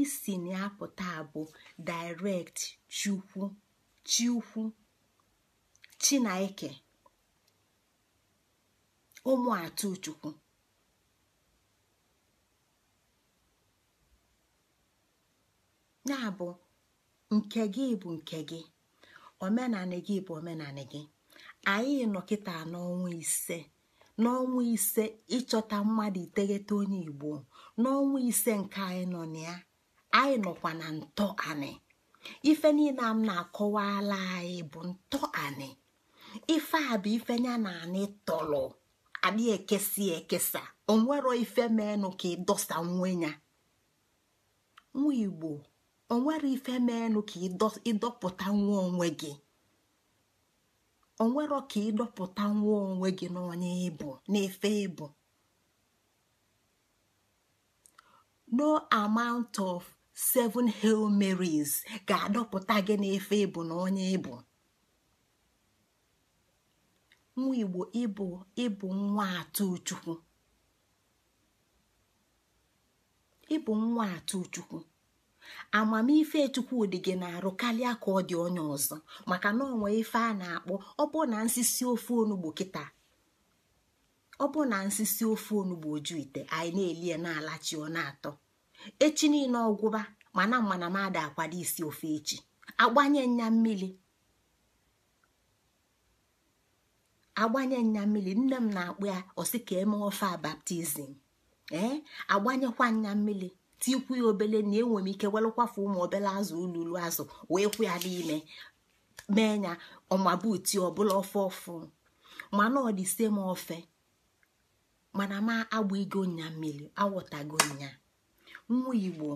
isi na-apụta bụ direct chukwu chukwu chinaike ụmụ atụ chukwu ya bụ nke gị bụ nke gị omenanị gị bụ omenanị gị anyị nọ kịta ise n'ọnwa ise ịchọta mmadụ iteghete onye igbo n'ọnwa ise nke anyị nọ na ya anyị nọkwa na ntọ ife niile m na-akọwala anyị bụ ntọ ife a bụ ife ya na anị tọrọ adị ekesi ekesa onwero ife ka ịdọsa nwe ya nwa igbo O onwere ife meenụ ka ịdọpụta nwa onwe gị onwero ka ịdọpụta nwa onwe gị n'onye ịbụ n'efe ịbụ no amount of seven hail maries ga-adọpụta gị n'efe ịbụ na onye ịbụ nwa igbo ịbụ ịbụ nwa atụ chukwu ịbụ nwa atụ chukwu amamife Chukwudị gị na-arụ karịa ka ọ dị onye ọzọ maka na onwe ife a na-akpọ ọbụ na nsisi ofe onugbu kịta ọbụ na nsisi ofe onugbo oju ite anyị na-elie na-alachi ọ na-atọ echi niile ọgwụba mana mana m ada akwado isi ofe echi agbanye nya mmiri agbanye nya mmiri nne m na-akpụ ya ọsị ka eme ofe a baptizim ee agbanyekwa nya mmiri tikwu ya obele na enwere m ike welụkwafu ụmụ obele azụ ululu azụ wee kwụ ya n'ime mee ya ọmabuti ọbụla ọfụ ọfụ mana ọ dị m ofe mana m agbaigo nya mmiri awọtago nya nwa igbo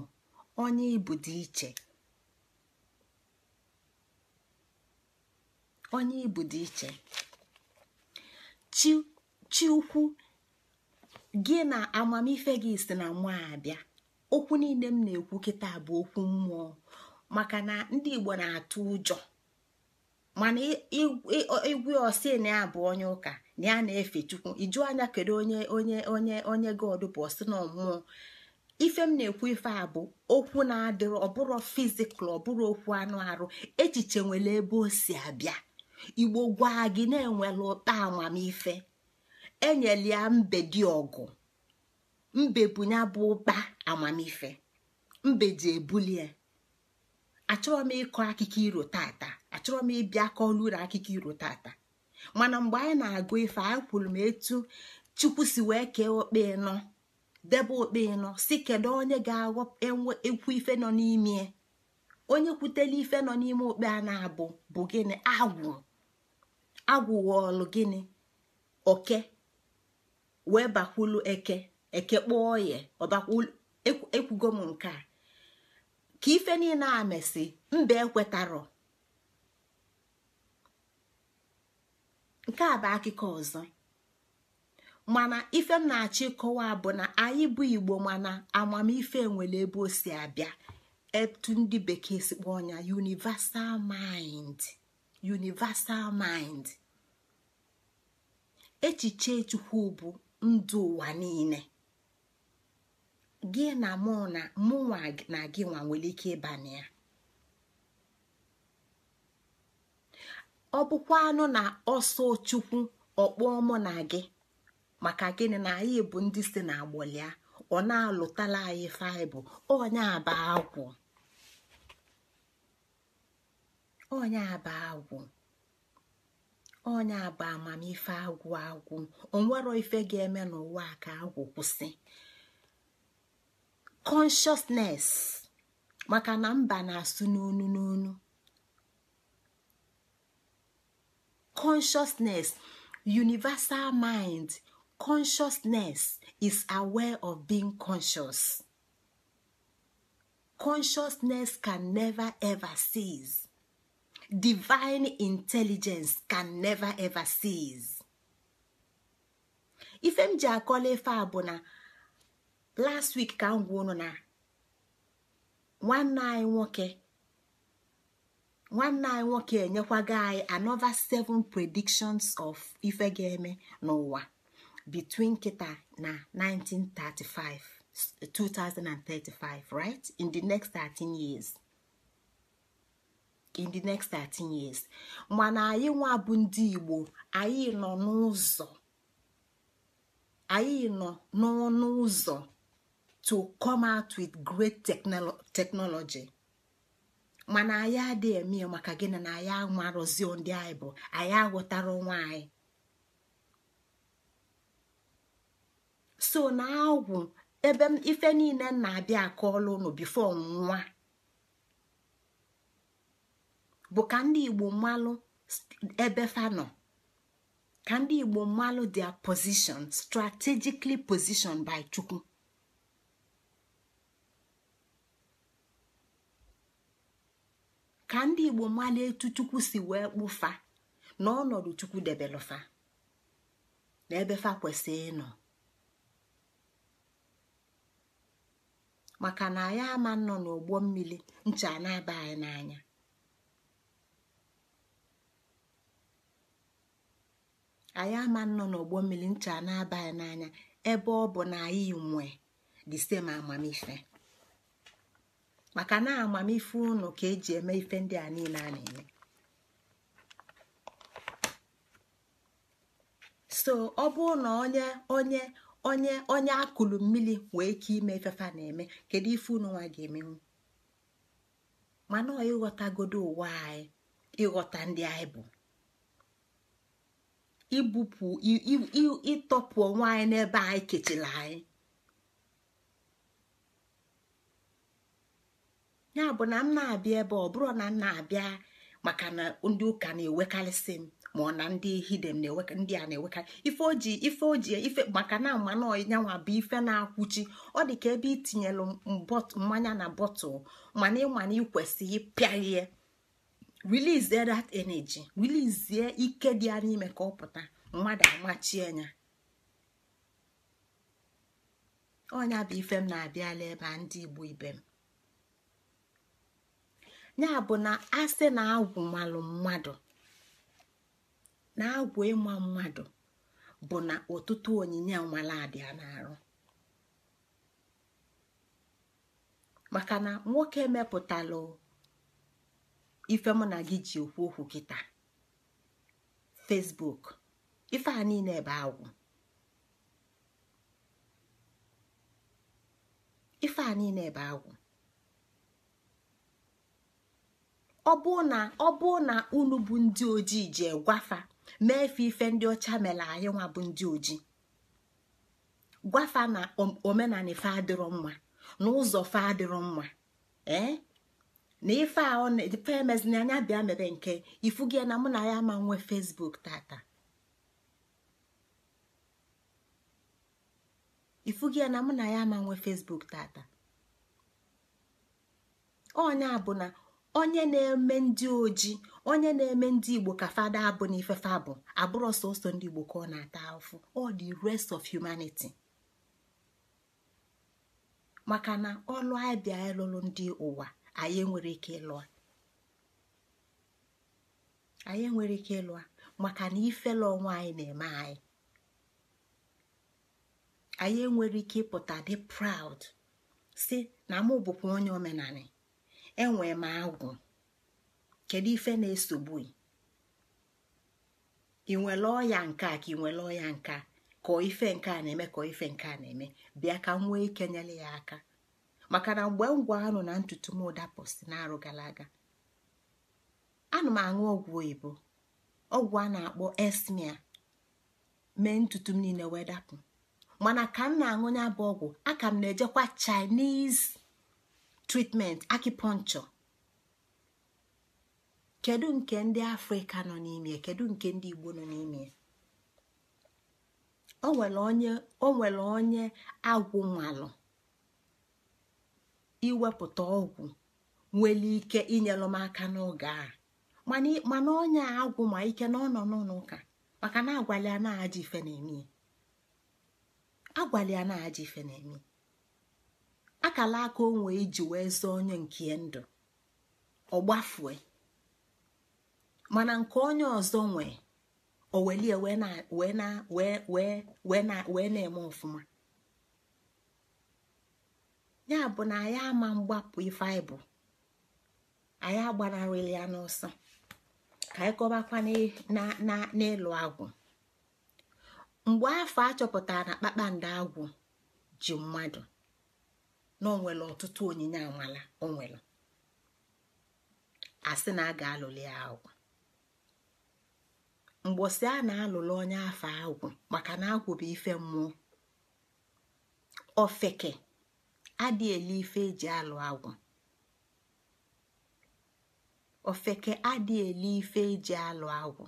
onye ibu dị iche onye ibu dị iche chi ukwu gị na amamife gị si na nwa abịa okwu niile m na-ekwu kịta bụ okwu mmụọ maka na ndị igbo na-atụ ụjọ mana igwe osi na ya bụ onye ụka na ya na-efe chukwu iju anya kedu onye onye onye onye god bụ ọsị na ọmụọ ife m na-ekwu ife a bụ okwu na adịrị ọbụrụ fizikal ọbụrụ okwu anụ arụ echiche nwere ebe o si abịa igbo gwa gị na-enwere ụta amamife enyela ya mbedi ọgụ mbe bụ bụ ụkpa amamife mbe ji ebulie achọrọ m ịkọ akụkọ iro tata achọrọ m ịbịa kọọlụ uru akụkọ iro tata mana mgbe anyị na-agụ ife anyị kwuru m etu chukwu si wee kee okpe nọ debe okpe ịnọ si kedu onye ga-ekwu ife nọ n'ime onye kwutela ife nọ n'ime okpe a na-abụ bụ gịnị agwụ agwụ ghọọlụ gịnị oke wee bakwulu eke ekekpọọ oye ekwugo m nke a ka ife niile a mesị mba ekwetarọ nke a bụ akụkọ ọzọ mana ife m na-achọ ịkọwa bụ na anyị bụ igbo mana amamife nwere ebe o si abịa etu ndị bekee si kpọọ ya universal mind universal mind echiche chukwu bụ ndụ ụwa niile gị na mụ na mụnwa na gị nwa nwere ike ịba na ya ọ bụkwa anụ na ọsọ chukwu ọkpọọ mụ na gị maka gịnị na anyị bụ ndị si na agbọlịa ọ na-alụtala anyị faịbụl onye aba agwụ onye aba agwụ onye aba amamife agwụ agwụ onwero ife ga-eme n'ụwa ka agwụ kwụsị consciousness maka na mba na-asụ n'onu n'onu consciousness universal mind consciousness is aware of being conscious consciousness can never ever cease divine intelligence can never ever cease ife m ji akọla ife a bụ na last week ka m ọnụ unu na nwanne anyị nwoke nwanne anyị nwoke enyekwago anyị another seven predictions of ife ga-eme n'ụwa between kịta na 1935 2035 right in the next 13 years in the next 13 years mana anyị nwa bụ ndị Igbo anyị nọ n'ụzọ anyị nọ n'ọnụ ụzọ to come out with great technology mana anyị adịghị eme ya maka gị na anyị amarụzi ndị anyị bụ anyị aghọtara onwe anyị so na agwụ ebe ife niile m na-abịa akọọla unu bifo nwa bụ ka ndị igbo mmalụ ebe fanọ ka ndị igbo mmalụ their position strategically positioned by chukwu ka ndị igbo mala etu chukwu si wee kpụfa na chukwu debelụfa na ebefa fa kwesị ịnọ maka na anyị ama nọ n'ụgbọ mmiri ncha na-aba anyị n'anya anyị ama nọ n'ụgbọ mmiri ncha na-aba anyị n'anya ebe ọ bụ na anyị nwe the same amamife maka na amamife unu ka eji eme ife ndị a niile a na-eme so ọ bụrụ na onye onye onye onye akụlụ mmiri wee ike ime ifefa na-eme kedu ife unu nwa ga-emenwu mana ọ ịghọtagodo ụwa anyị ịghọta ndị anyị bụ ibupụ ịtọpụ onwe anyị n'ebe anyị kechiri anyị ya bụ na m na-abịa ebe ọ bụrụ na m na-abịa maka na ndị ụka na-ewekarịsị m ma ọ na ndị hidem ndị a na-ewekarị ife oji ife oji ife maka na mmanụ ọnyanwa bụ ife na-akwụchi ọ dị ka ebe itinyelu mmanya na bọtụl mana ịmana ikwesị ịpịaghie release that energy release ike dị ya n'ime ka ọ pụta mmadụ amachie ya ọnya bụ ife m na-abịala ebe a ndị igbo ibe m ya bụ na asị na agwụ malụ mmadụ na agwụ ịma mmadụ bụ na ọtụtụ onyinye nwaladịa na-arụ maka na nwoke mepụtala ife mụ na gị ji okwu okwu kịta Facebook ife a niile ebe ebe agwụ ọ bụ na unu bụ ndị ojii ji gwafa mee fe ife ndị ọcha mere anyị nwa bụ ndị ojii gwafa na omenala ife adịrọ mma na ụzọ fe adịrọ mma eh? na ife a ife emezina anya bịa mere nke ifu gị na mụ na ya ama nwee fesbuk tata onye onye na-eme ndị ojii, onye na-eme ndị igbo ka fada abụ na ifefe abụ abụrọ sọsọ ndị igbo ka ọ na-ata afụ ọ the rest of humanity maka na ọlụ anyị bịa ndị ụwa anyị nwere ike ịlụ anyị enwere ike maka na ifele ọnwa anyị na-eme anyị anyị enwere ike ịpụta dị proud si na mụ bụkwa onye omenala enwe m agwụ kedu ife na-esogbu ị nwere ọya nke a ka ị nwere ọya nka ka ife nke a na-eme ka ife nke a na-eme bịa ka m nwee ike nyere ya aka maka na mgbe m gwa anụ na ntutu m dapụsị na-arụ gara aga anụ m aṅụ ọgwụ oyibo ọgwụ a na-akpọ esmia mee ntutu m niile wee dapụ mana ka m na-aṅụ ya bụ ọgwụ aka m na-ejekwa chinese tritment akipọnchọ kedu nke ndị afrịka nọ n'ime kedu nke ndị igbo nọ n'ime o nwere onye agwụ nwalụ iwepụta ọgwụ nwere ike inyelụ m aka n'oge a mana onye agwụ ma ike na ọ nọ n'ụlọ ụka maka na agwala ya na-aja ife na-eme ife na-eme akala aka onwe iji wee zọọ onye nke ndụ ọgbafue mana nke onye ọzọ nwe owelie wee na-eme ọfụma ya bụ na anyị ama mgbapụ ife anyị bụ anyị agbanarịla ya n'ọsọ ka anyị kọbakwa n'ịlụ agwụ mgbe afọ achọpụtara na kpakpando agwụ ji mmadụ na onwere ọtụtụ onyinye amala onwere asị na a ga-alụli ya agwụ mgbosi a na-alụlụ onye afọ agwụ maka na agwụ bụ ife mmụọ ofeke adị ife eji alụ agwụ ofeke adị ife eji alụ agwụ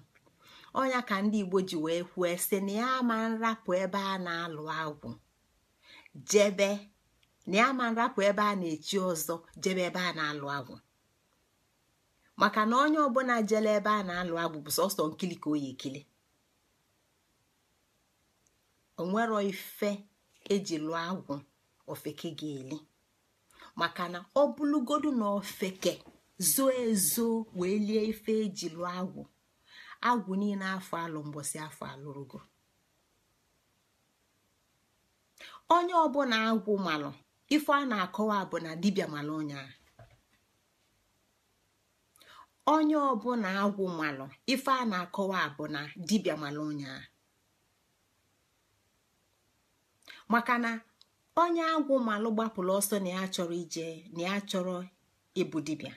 onya ka ndị igbo ji wee kwuo sị na ya ama nrapụ ebe a na-alụ agwụ jebe na ya ma ebe a na-echi ọzọ jebe ebe a na-alụ agwụ maka na onye ọbụla jele ebe a na-alụ agwụ bụ sọsọ nkili ka oyi ekili onwero ife eji lụọ agwụ ofeke ga-eli maka na ọ bụlụgodu na ofeke zoo ezo wee lie ife eji lụọ agwụ agwụ niile afọ alụ mgbọsị afọ alụrụgo onye ọbụla agwụ malụ ife a na-akọwa bụ na dibịa mara onye a onye ọbụla agwụ malụ ife a na-akọwa bụ na dibịa mara onye maka na onye agwụ malụ gbapụrụ ọsọ na ya chọrọ ije na ya chọrọ ịbụ dibịa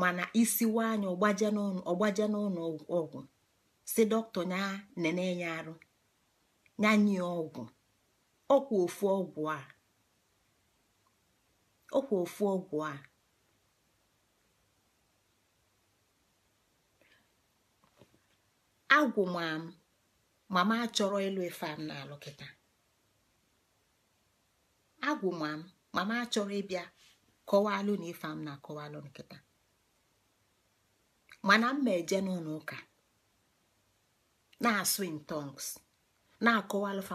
mana isiwa anya ọgbaje n'ụlọ ọgwụ si dọkịta ya nene ya arụ ya nye ọgwụ ọkwa ofu ọgwụ a ọkwa ofu ọgwụ a agwụ mam mama achọrọ ịlụ ife m na kịta agwụ mam mama achọrọ ịbịa kọwalụ na ife m na-akọwalụ nkịta mana m ma eje n'ụlọ ụka na-asụ in tongues na-akọwalụfa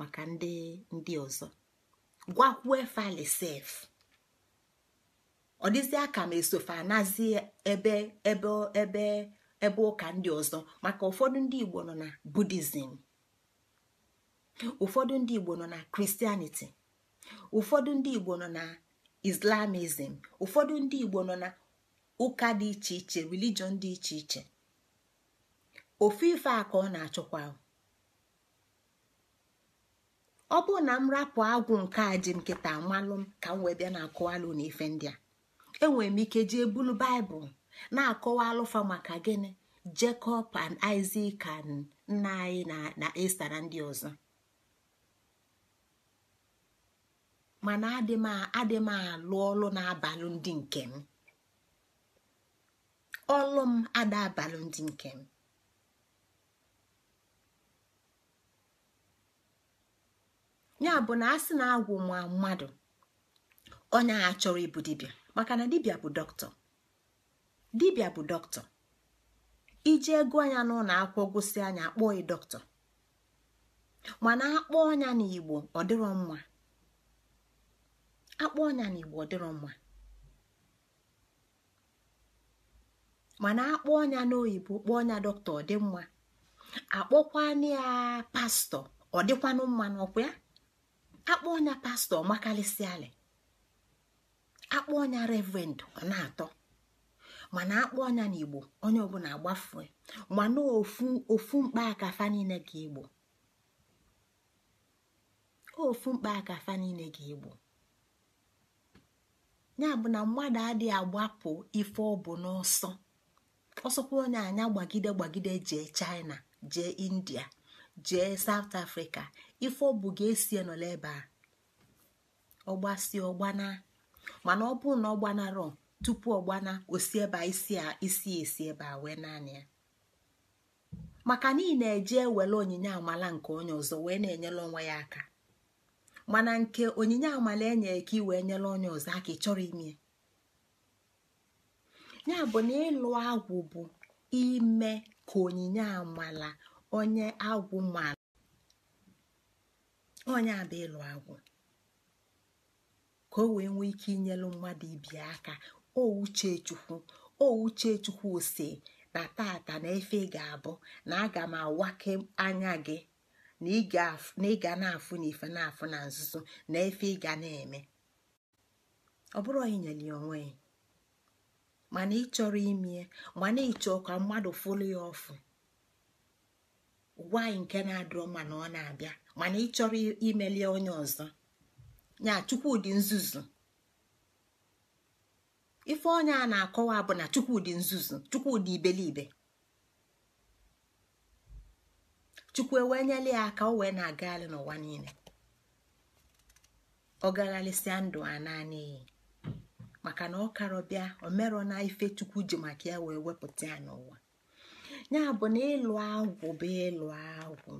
maka ndị ndị ọzọ gwakwuo efalisef ọ dịzịa ka m esofe anazie ebe ebe ebe ebe ụka ndị ọzọ maka ụfọdụ ndị igbo nọ na budizim ụfọdụ ndị igbo nọ na kristianiti ụfọdụ ndị igbo nọ na islamizm ụfọdụ ndị igbo nọ na ụka dị iche iche religion dị iche iche ofu ife a ka ọ na-achọkwa ọ bụ na m rapụ agwụ nke a ji m amalụ m ka m wee bịa na akụwalụ na ife ndị a enwere m ike jee ebulu baịbụl na-akọwa alụfa maka gịnị jekọb and isak and nna anyị na esta na ndị ọzọ mana adị m alụ ọlụ na-abalụ ndị nke m ọlụ m ada abalụ ndị nke m ya bụ na a sị na agwụ nwa mmadụ onye a chọrọ ịbụ dibịa maka na dibịa bụ dọkịta dibịa bụ dọkịta iji ego anya n'ụlọ akwụkwọ gosi anya akpọọ ị dọkịta mana akpọ ọnya n'igbo ọ dịrọ mma akpọ onya n'igbo ọ dịrọ mma mana akpọ ọnya n'oyibo kpọọ ọnya dọkịta ọ dị mma akpọkwana ya pastọ ọ dịkwanụ mma n'ọkwa ya akpọ ọnya pastọ makalịsịalị akpọ ọnya revend ọ na-atọ mana akpọ ọnya na igbo onye ọbụla agbafue mana ofu mkpa aka niile ka igbo ofu mkpa akafa niile ka igbo ya bụ na mmadụ adịghị agbapụ ife ọ bụ n'ọsọ ọsọkwa onye anya gbagide gbagide jee China jee India jee South afrịka ife ọ bụ ga-esi nọ ebe a ọgbasi ọgbana mana ọ bụrụ na ọ gbanarọ tupu ọ gbana osi ebe isi isi esi ebe a wee naanị ya maka niile ị na-eje ewele onyinye amala nke onye ọzọ wee na-enyere onwe ya aka mana nke onyinye amala enyere ka ị wee nyere onye ọzọ aka ị chọrọ ime ya bụ na ịlụ agwụ bụ ime ka onyinye amala onye agwụ mara onye abụ ịlụ agwụ ka o wee nwee ike inyelu mmadụ ibi aka o uchechukwu o uchechukwu ose na tata na efe ga-abụ na aga m awake anya gị na ị ga na-afụ na ife na-afụ na nzuzo na efe ị ga na-eme ọ bụrụ ya onwe ya mana ị chọrọ imie mana ị ka mmadụ fụlụ ya ọfụ gwa anyị nke na-adịrọ mana ọ na-abịa mana ị chọrọ imelie onye ọzọ ya chukwudị nzuzu ife onye a na-akọwa bụ na chukwudị nzuzu chukwudị ibelibe chukwu ewee nyela ya aka o wee na-agagharị n'ụwa niile ọ gagharịsịa ndụ a naanị maka na ọ karọbịa o na ife chukwu ji maka ya wee wepụta ya n'ụwa ya bụ na ịlụ agwụ bụ ịlụ agwụ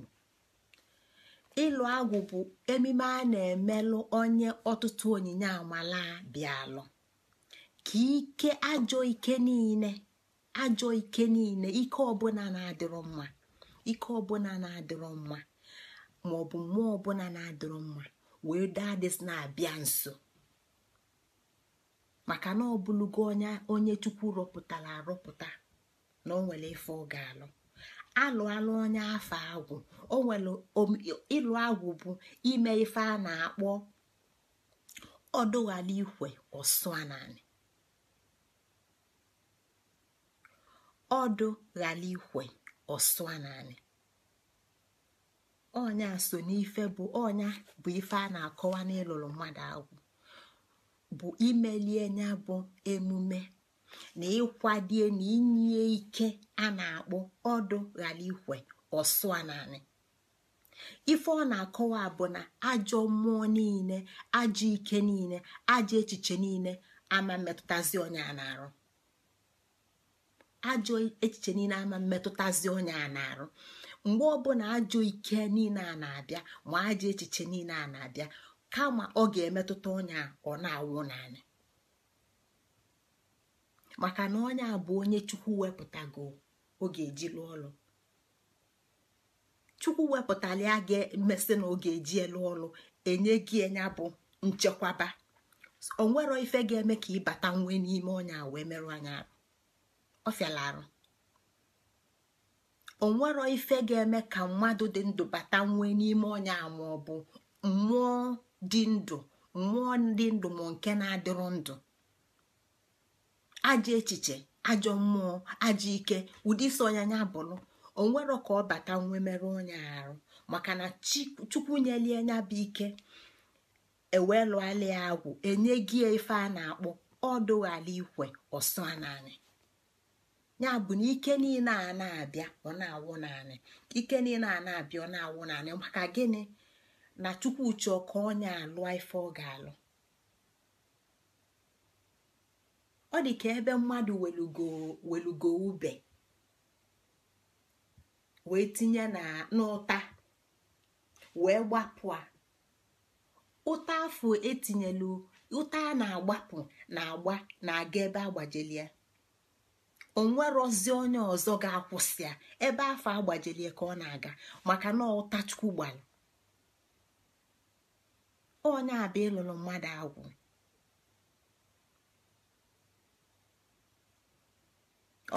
ịlụ agwụ bụ emime a na-emelụ onye ọtụtụ onyinye amala bịalụ ka ike ajọ ike niile ajọ ike niile ike ọbụla na-adịrọ mma ike ọbụla na-adịrọ mma ma ọ bụ mmụọ ọbụla na-adịrọ mma wee dadis na-abịa nso maka na ọbụlugo onye chukwu rọpụtara arọpụta na o nwere ife ọ ga-alụ alụala onye afọ agwụ o nwere ịlụ agwụ bụ ime ife a na-akpọ ọdụghala ikwe ọsụananị ọdụ ghala ikwe ọsụananị ọnya so n'ife bụ ọnya bụ ife a na-akọwa n'ịlụrụ mmadụ agwụ bụ imelie nya bụ emume na ịkwadie na inye ike a na-akpọ ọdụ ghara ikwe ọsụ naanị ife ọ na-akọwa bụ na ajọ mmụọ niile ajọ ike niile ajọ echiche niile ama mmetụtazi onye a na-arụ ajọ echiche niile ama mmetụtazi onye a na-arụ mgbe ọbụla ajọ ike niile a na-abịa ma ajọ echiche niile a na-abịa kama ọ ga-emetụta onye ọ na-awụ naanị maka na onye a bụ onye chukwu wepụtago oge lụọ ọlụ chukwu wepụtali a ga-emesị na oge eji elu ọlụ enye gị enya bụ nchekwaba onwero ife ga-eme ka ịbata nwe n'ime a wee merụ anya arụ onwero ife ga-eme ka mmadụ dị ndụ bata nwe n'ime ọnya ma ọ bụ mmụọ dị ndụ mmụọ dị ndụ ma nke na-adịrụ ndụ ajọ echiche ajọ mmụọ ajọ ike ụdị isi ọnyanya bụlụ onwero ka ọ bata nwe merụ onye arụ maka na chukwu nyelie nya bụ ike eweelụala ya agwụ enye gị ife a na-akpọ ọdụghala ikwe ọsọ naanị ya bụ na ike niile a na-abịa ọ na-awụ naanị ike niile a na-abịa ọ na-awụ naanị maka gịnị na chukwu chọọ ka onye alụọ ife ọ ga-alụ ọ dị ka ebe mmadụ welugo ube wee tinye n'ụta wee gbapụ a ụta afọ etinyela ụta a na-agbapụ na-agba na-aga ebe O onwerozi onye ọzọ ga-akwụsị ebe afọ agbajelie ka ọ na-aga maka na ụta chukwu gbara onye ịlụrụ mmadụ agwụ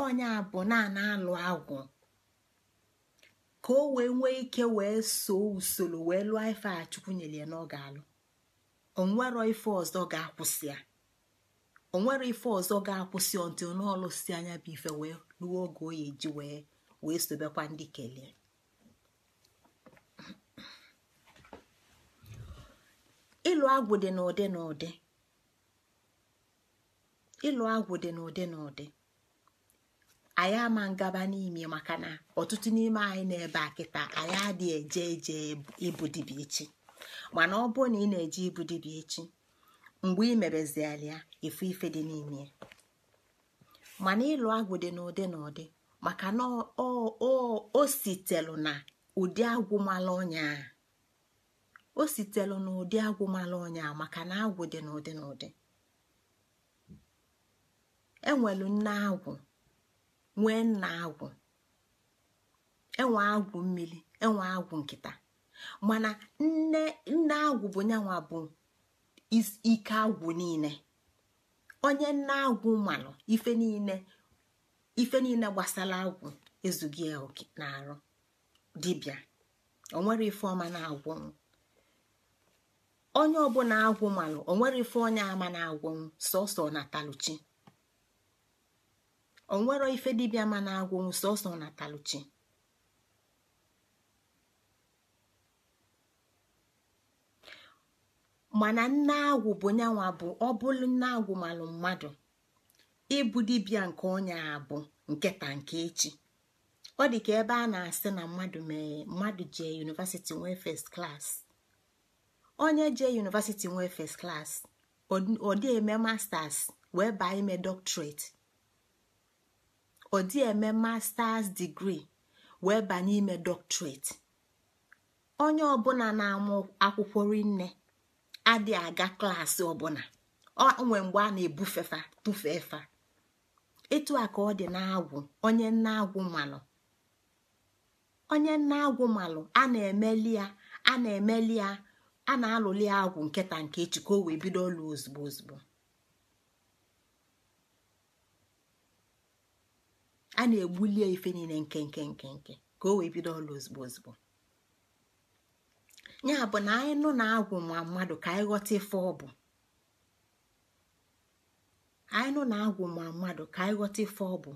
onye bụ naanị alụ agwụ ka o wee nwee ike wee soo usoro wee lụọ ife a chukwu nyere ya na ọ ga-alụ onwero ife ọzọ ga-akwụsị ya onwere ife ọzọ ga-akwụsị ọntị n'ọlụsi anya bụ ife wee lụọ oge oyi ji wee wee sobekwa ndị kelee ịlụ agwụ dị n'ụdị n'ụdị ịlụ agwụ dị n'ụdị n'ụdị anyị ama ngaba n'ime maka na ọtụtụ n'ime anyị na-ebe a anyị adịghị eje eje ibu dibịa echi mana ọ bụrụ na ị na-eje ibu echi mgbe ị mebeziala ya efu ife dị n'ime mana ịlụ agwụ dị n'ụdị na ụdị maka na o sitelu na ụdị agwụmala ọnya o sitelu na ụdị ọnya maka na agwụ dị n'ụdị na ụdị enwelu nne agwụ nwee nna agwụ enwe agwụ mmiri enwe agwụ nkịta mana nne nne agwụ bụ nyanwa bụ ike agwụ niile onye nne agwụ mmanụ ife niile ife niile gbasara agwụ ezughị oke na-arụ dibịa onwere ife ọma na-agwụnwụ onye ọbụla agwụ malụ onwere ife onye ama na-agwụnwụ sọsọ na taluchi onwero ife dibịa ma na-agwụnwụ sọsọ na taluchi mana nne agwụ bụ nyanwa bụ ọ nne agwụ malụ mmadụ ịbụ dibịa nke onye a bụ nketa nke echi ọ dị ka ebe a na-asị na mmadụ mee mmadụ jee yunivasiti nwee fest onye jee yunivasiti nwee fest klas ọ dị eme masters wee baa ime doctorate ọ dị eme masters degree wee banye ime doctorate onye ọbụla na-amụ akwụkwọ rinne adịghị aga klaasị ọbụla nwe mgbe a na-ebufefa tụfefa etu a ka ọ dị na-agwụ onye nna agwụ malụ onye nna agwụ malụ a na-emeli ya a na-emeli ya a na-alụli agwụ nketa nke echi ka o wee bido ọlụ ozugbo ozugbo a na-egbulie ife niile nke nke nke nke ka o wee bido ọlụ ozugbo ozugbo ya bụ na anyị nụ na agwụ ma mmadụ ka anyị ghọta ife ọ bụ anyị nụ na agwụ mmadụ ka anyị ghọta ife ọ bụ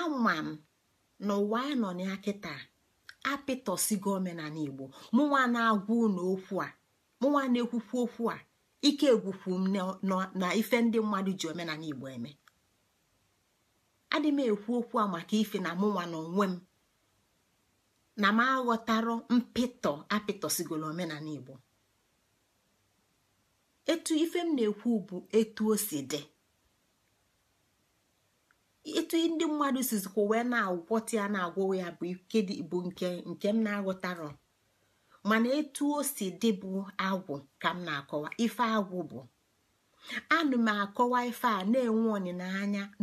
ama m na ụwa anyị nọ na ya kịta apịtọsigo omenala igbo mụnwa na-agwa unu okwu a mụnwa na-ekwukwu okwu a ike egwukwu m na ife ndị mmadụ ji omenala igbo eme adị m ekwu okwu a maka ife na mụnwa na onwe m na m aghọtarụ mpịtọ apịtọsigoro omenala igbo etu ife m na-ekwu bụ etu o si dị etu ndị mmadụ sizikwa wee na-agwọta ya na agwọ ya bụ ike bụ nke nke m na-aghọtaro mana etu o si dị bụ agwụ ka m na-akọwa ife agwụ bụ anụ m akọwa ife a na-enwe ọnịna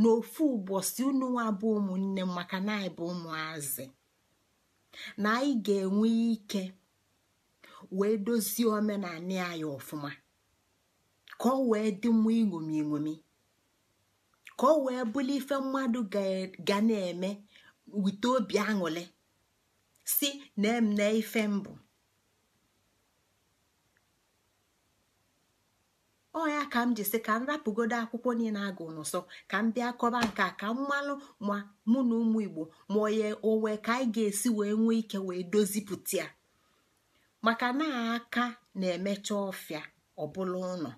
n'ofu ụbọchị unu nwa bụ ụmụnne maka na anyị bụ ụmụazị na anyị ga-enwe ike wee dozie omenanị anyị ọfụma ka ọ wee dị mma iṅomi iṅomi ka ọ wee bụrụ ife mmadụ ga na-eme wite obi aṅụrị si na ife mbụ ọ ya ka m jisi ka m rapụgodo akwụkwọ niile agụ n'ụsọ ka m bịa kọba nke a ka m malụ ma mụ na ụmụ igbo ma onye onwe ka anyị ga-esi wee nwee ike wee dozipụta ya maka na aka na-emecha ọfịa ọbụla ụlọ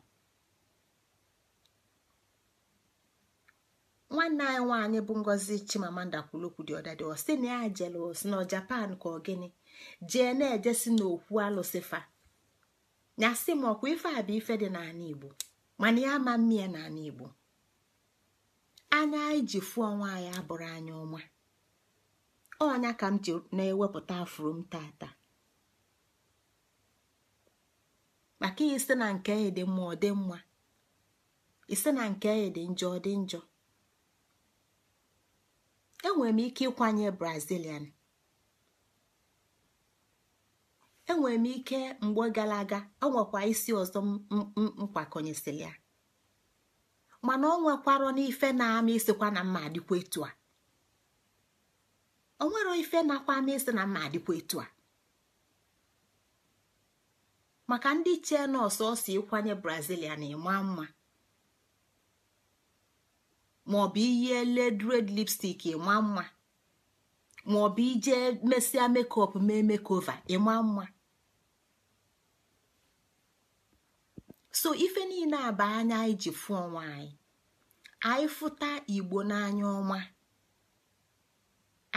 nwanne anyị nwaanyị bụ ngozi chimamanda kwulokwu dị ọdadị ọ sị na ya si na japan ka ọ gịnị jee na-ejesi n'okwu alụsifa. na m ọkwa ife a bụ ife dị n'ala igbo mana ya ama mmịa n'ala igbo anya anyị ji fụọ ọnwa anyị abụrụ anya ọma ọnya ka m ji na-ewepụta afụrụ m tata maka isi na nke ya dị mma ọ dị mma ise na nke ya dị njọ ọ dị njọ enwere m ike ịkwanye brazilian enwere m ike mgbe gara aga ọ nwekwa isi ọzọ mkwakọnyesịrị ya mana ọ nwekwarọ n'ife na-ama isikwa na mma adịkwa etu a o nwere ife nakwa ama na mma adịkwa maka ndị chee nọọsụ ọsọ ịkwanye brazilia na ịma mma maọbụ ihe led red lipstik ịma mma maọbụ ije mesia mekop mee mekova ịma mma so ife niile a bụ anya anyị ji fụ ọnwa anyị anyị fụta igbo n'anya ọma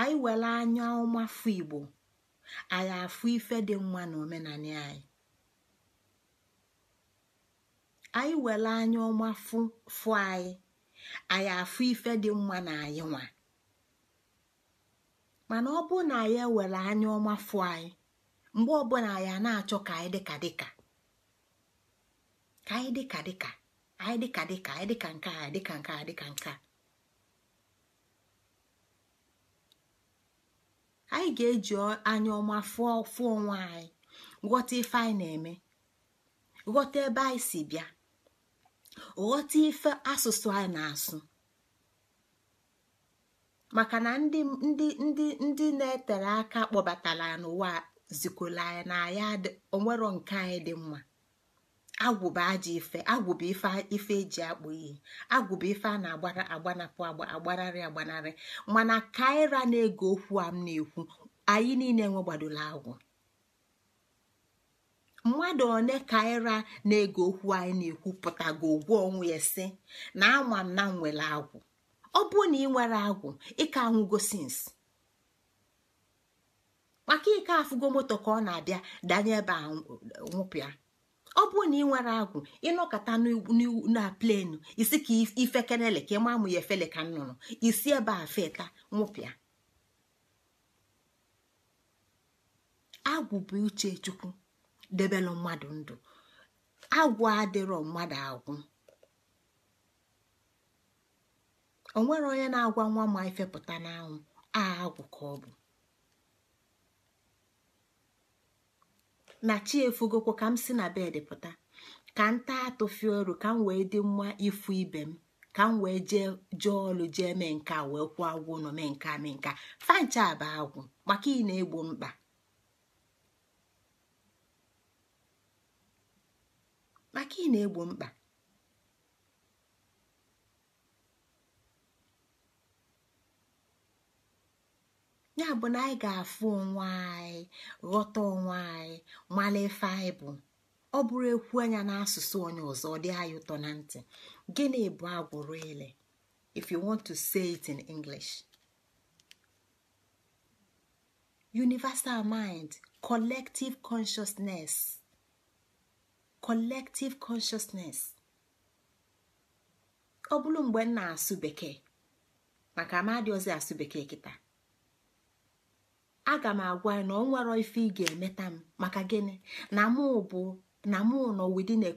anyị were anya ọma fụ igbo anyị afụ ife dị mma na omenala anyị anyị were anya ọma fụ fụ anyị anyị afụ ife dị mma na anyị nwa mana ọ bụ na anyị were anya ọma fụ anyị mgbe ọbụla anyị na-achọ ka anyị dịka dịka ka anyị dịka dịka anyị dịka dịka anyị dịka nke a dịka nke a dịka nke a anyị ga-eji anya ọma fụọ fụọ onwe anyị ghọta ife anyị na-eme ghọta ebe anyị si bịa ghọta ife asụsụ anyị na-asụ maka na ndị ndị ndị ndị na-etere aka kpọbatara n'ụwa zikola anyị na ya onwero nke anyị dị mma agwụba bụ ajọ ife agwụba bụ ife ife eji akpụ iyi agwụba ife a na-agbara agbanapụ agbanarị agbanarị mana kaira na ego okwu a m na-ekwu anyị niile nwe agwụ mmadụ ole kaira na ego okwu anyị na-ekwu pụtago ogwu onwe ya sị na ama m na m nwere agwụ ọ bụrụ na ị nwere agwụ ịka anwụgo sins maka ike afụgo moto ka ọ na-abịa danye ebe a nwụpịa ọ bụrụ na ị nwere agwụ ịnọkọta na plenu isi ka ifekenele ka ịma amụ ya efele ka nnụnụ isi ebe a feta nwụpịa agwụ bụ uche chukwu debelụ mmadụ ndụ agwụ adịrọ mmadụ agwụ nwere onye na-agwa nwa ma ifepụta n'anwụ a agwụ ka ọ bụ na chi efugokwo ka m si na bed pụta ka nta taa atụfie ọrụ ka m wee dị mma ifu ibe m ka m wee jee jee ọlụ jee mee nka wee kwụọ agwụ ụlọ mee nka mee fancha agwụ maka ị na-egbo na-egbo mkpa ya bụ na anyị ga-afụ onwe anyị ghọta onwe anyị malefe anyị bụ ọ bụrụ ekwu anya n'asụsụ onye ọzọ ọ dị anyị ụtọ na ntị gịnị bụ agwụrụ ile if you want to say it in English universal mind collective consciousness collective consciousness ọ bụrụ mgbe m na-asụ bekee maka amadiozi asụ bekee kịta aga m agwa ya na ọ ife ị ga-emeta m maka gịnị na m bụ na mụ nọ within a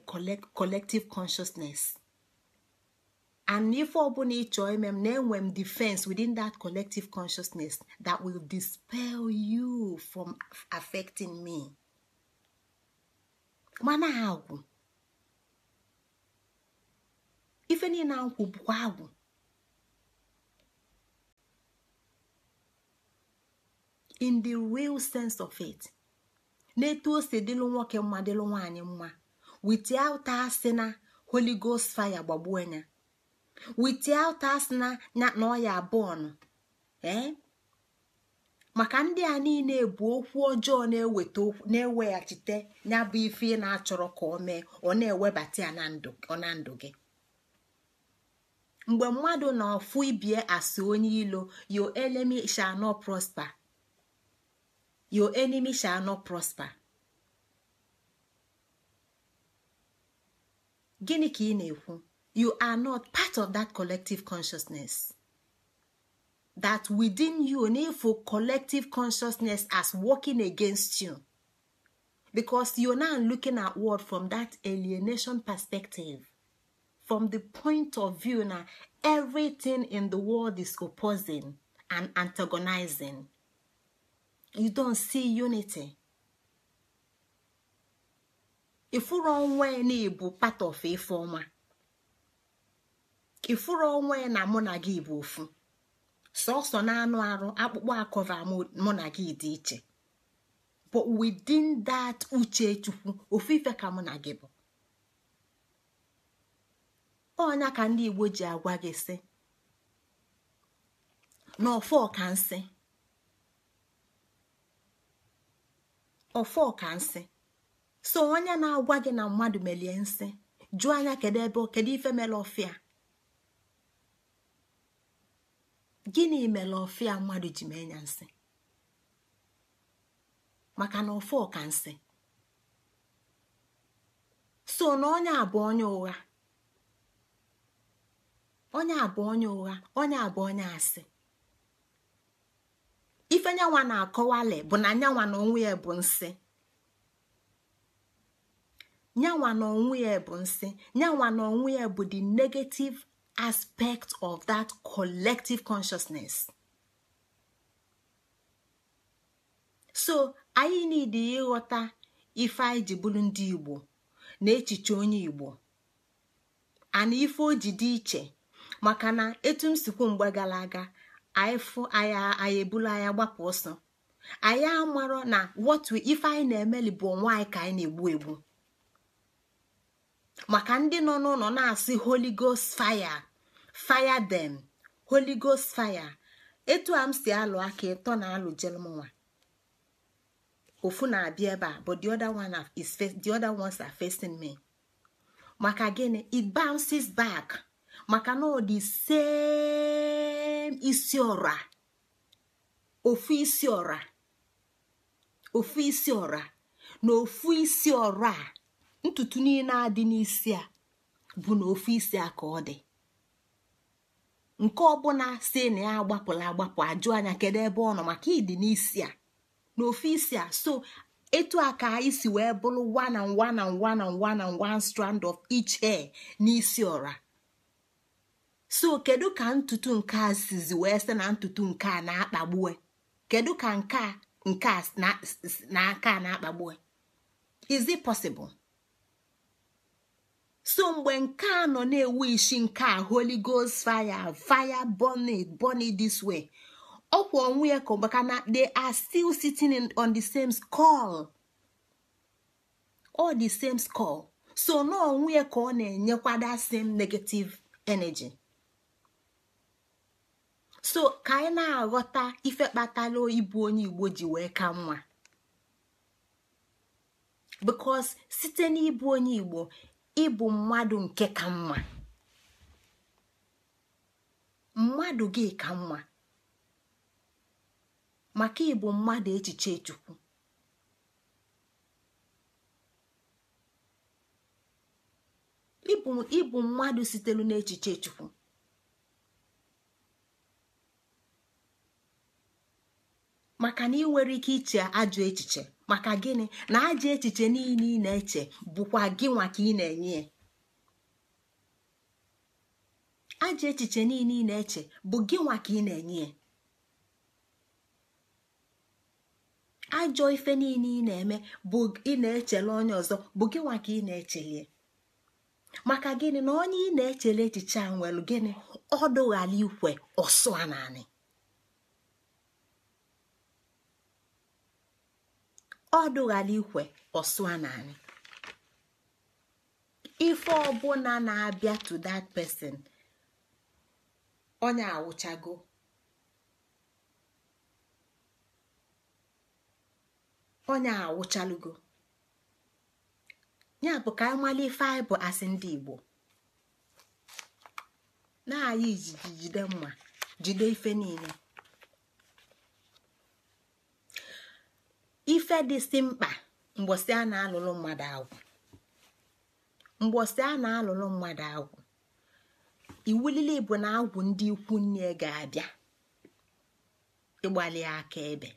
collective consciousness and ife ọbụla ị chọọ ime m na-enwe m defense within that collective consciousness that will dispel you from affecting me mana agwụ ife niile na nkwụ bụkwa agwụ in the real sense of it na-etu o si dịlụ nwoke mma dịlụ nwaanyị mma without asị na holy ghost fire gbagbuo ya without asị na na ọ ya na ee eh? maka ndị a niile bụ okwu ọjọọ na-eweta na-eweghachite ya bụ ife na-achọrọ ka ọ mee ọ na-ewebata ya na ndụ gị mgbe mmadụ na ọfụ ibie asị onye ilo your enemy shall prosper your enemy shall not prosper gịnị ka ị na-ekwu you are not part of that collective consciousness that within you n'efu collective consciousness as working against you because you now looking at world from that alienation perspective from the point of view na everything in the world is opposing and antagonizing you don see unity ifuru onwe na ịbụ part of ife ọma ifuru onwe na mụ na gị bụ ofu sọsọ na anụ arụ akpụkpọ akọva mụ na gị dị iche but within that uche chukwu ofu ife ka mụ na gị bụ ọnya ka ndị igbo ji agwa gị sị n'ọfọ ka nsị ọfọka nsị so onye na-agwa gị na mmadụ melie nsị jụọ anya kedu ebe kedu ife mere ọfịa gịnị mere ọfịa mmadụ ji mee ya nsị maka na ọfọka nsị so na onye abụ onye ụgha onye abụ onye ụgha onye abụ onye asị ife nyanwa na-akọwali bụ na nyanwa na onwe ya bụ nsị nyanwa na onwe ya bụ nsị nyanwa na onwe ya bụ the negative aspect of that collective consciousness so anyị niile ịghọta ife anyị ji bụrụ ndị igbo na echiche onye igbo ana ife o ji dị iche maka na etu m sikwu mgbe gara aga anyị fụ anyị anyị ebulu anya gbapụ ọsọ anyị amarọ na wọtu ife anyị na-emeli bụ onwe anyị ka anyị na-egbu egbu maka ndị nọ n'ụlọ na-asị holy ghost fire fire them holy ghost fire etu a m si alụ aka ịtọ na alụ jelmụnwa ofu na-abịa ebe a but the other one is the other ones are facing me maka gịnị it bounces back. maka na ọ dị same isi ọra ofu isi ọra ofu isi ọra na ofu isi ọra a ntutu niile adị n'isi a bụ na ofu isi a ka ọ dị nke ọbụla si na ya agbapụla agbapụ ajụ anya kedu ebe ọ nọ maka ịdị n'isi a na ofu isi a so etu a ka anyị si wee bụrụ one and one one one strand of each hair n'isi ọra so kedu ka ntutu nke a sizi wee sị na ntutu nke a na-akpagbue kedu ka nke a nke a na aka na-akpagbue is it possible so mgbe nke a nọ na-ewu isi nke a holy ghost fire fire burning. burning this way ọkwa onwe ya ka maka na they are still sitting on the same skull all the same skull so na onwe ya ka ọ na enyekwa that same negative energy so ka anyị na-aghọta ife kpatara ịbụ onye igbo ji wee ka mma because site n'ịbụ onye igbo ịbụ mmadụ nke ka mma mmadụ gị ka mma maka ịbụ mmadụ echiche chukwu ịbụ mmadụ sitere n'echiche chukwu maka na ị nwere ike iche ajọ echiche maka gịnị na ajọ echiche niile ị na-eche bụkwa gị nwa ka ị na-enye ya ajọ echiche niile ị na-eche bụ gị nwa ka ị na-enye ajọ ife niile ị na-eme bụ ị na-echele onye ọzọ bụ gị nwa ka ị na-echele maka gịnị na onye ị na-echele echiche a nwere gịnị ọ dụghala ikwe ọsụ ọ dụghala ikwe ọsụa naanị ife ọbụla na-abịa to that person onye awụchago onye awụchalugo ya bụ ka amali ife anyị bụ asị ndị Igbo na-ayị ijigide mma jide ife niile ife dịsị mkpa mgbosi a na-alụlụ mmadụ agwụ mgbosi a na-alụlụ mmadụ agwụ iwulile bụ na agwụ ndị ikwu nne ga-abịa ịgbalị aka ebe